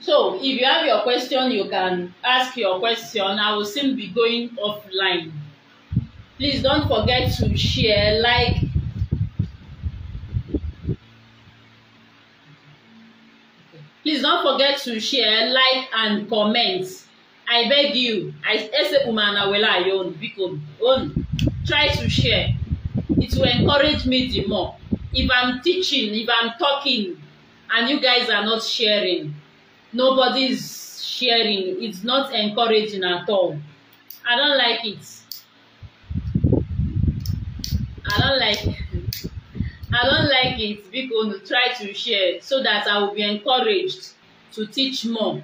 So if you have your question, you can ask your question. I will soon be going offline. Please don't forget to share, like, Please don't forget to share, like, and comment. I beg you, I ese on. Try to share. It will encourage me the more. If I'm teaching, if I'm talking, and you guys are not sharing, nobody's sharing, it's not encouraging at all. I don't like it. I don't like it. I don't like it biko unu try to share so that I will be encouraged to teach more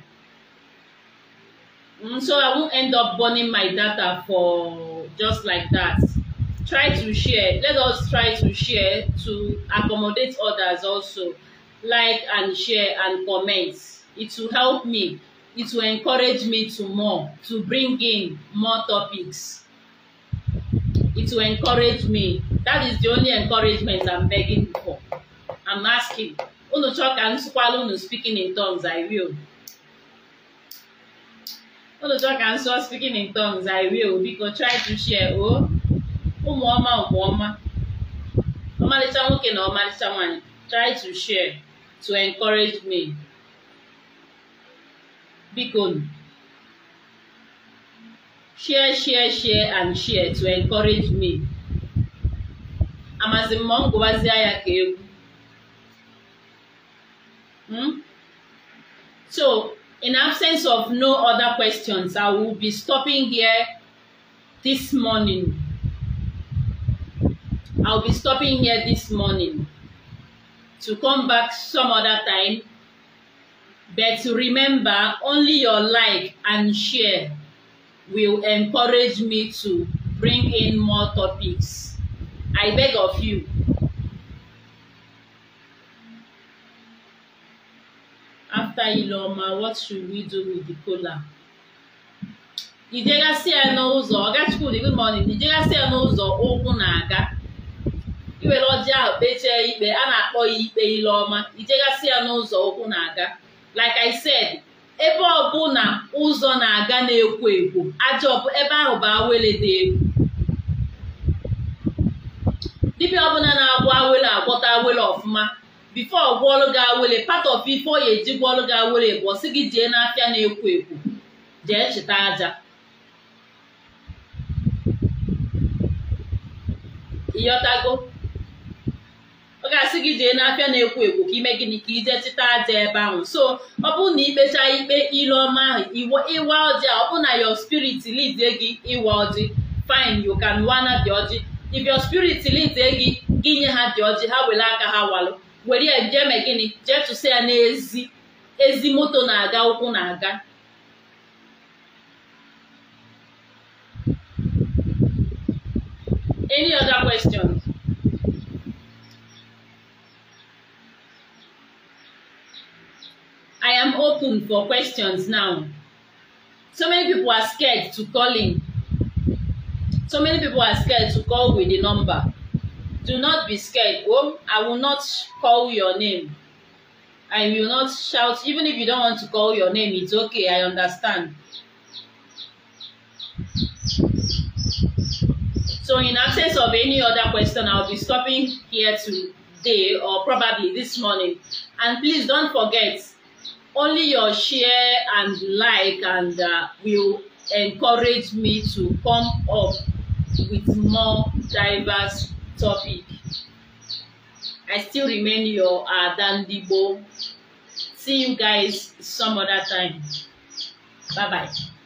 mm, so I won't end up burning my data for just like that try to share let us try to share to accommodate others also like and share and comment it will help me it will encourage me to more to bring in more topics it will encourage me that is the only encouragement I'm begging for I'm asking unu chọọ ka m sụkwala unu speaking in tongues I will unu chọọ ka m sụọ speaking in tongues I will biko try to share o oh. ụmụ ọma ụmụ ọma ọmalịcha nwoke na ọmalịcha nwanyị try to share to encourage me biko share share share and share to encourage me amazi mmụọ ngụwazie ya Hmm? So, in absence of no other questions, I will be stopping here this morning. I'll be stopping here this morning to come back some other time. But remember, only your like and share will encourage me to bring in more topics. I beg of you. After Iloma, what should we do with the kola? Ijegasị ya n'ụzọ ọgachukwu dị good morning si ya n'ụzọ ụkwụ na-aga iwere ọjị ahụ kpechie ikpe a na-akpọ ya ikpe Ileọma si ya n'ụzọ ụkwụ na-aga like I said ebe ọbụla ụzọ na-aga na-ekwo ekwo ajọ ebe ahụ bụ awele dị egwu dibia ọbụla na-agwọ awele agwọta awele ọfụma bifo gwọọlụ gị awele part of ife oya eji gwọọlụ gị awele bụ ọsị gị jee n'afịa na-ekwo ekwo jee chịta aja ịyọtago ọ ga-asị gị jee n'afịa na-ekwo ekwo ka ime gịnị ka ije chịta aja ebe ahụ so ọ bụrụ na ikpecha ikpe ile ọma ahụ ịwa ọjị a ọ na yo spirit lidie gị ịwa ọjị fine you can wana the ọjị if your spirit leads gị gị nye ha dị ọjị ha were aka ha walụ were ya jee gịnị jee ya n'ezi ezi moto na-aga ụkwụ na-aga any other questions? I am open for questions now. So many people are scared to call in. So many people are scared to call with the number. Do not be scared. Oh, I will not call your name. I will not shout. Even if you don't want to call your name, it's okay. I understand. So in absence of any other question, I'll be stopping here today or probably this morning. And please don't forget, only your share and like and uh, will encourage me to come up with more diverse topic. I still remain your Adan uh, Dibo. See you guys some other time. Bye bye.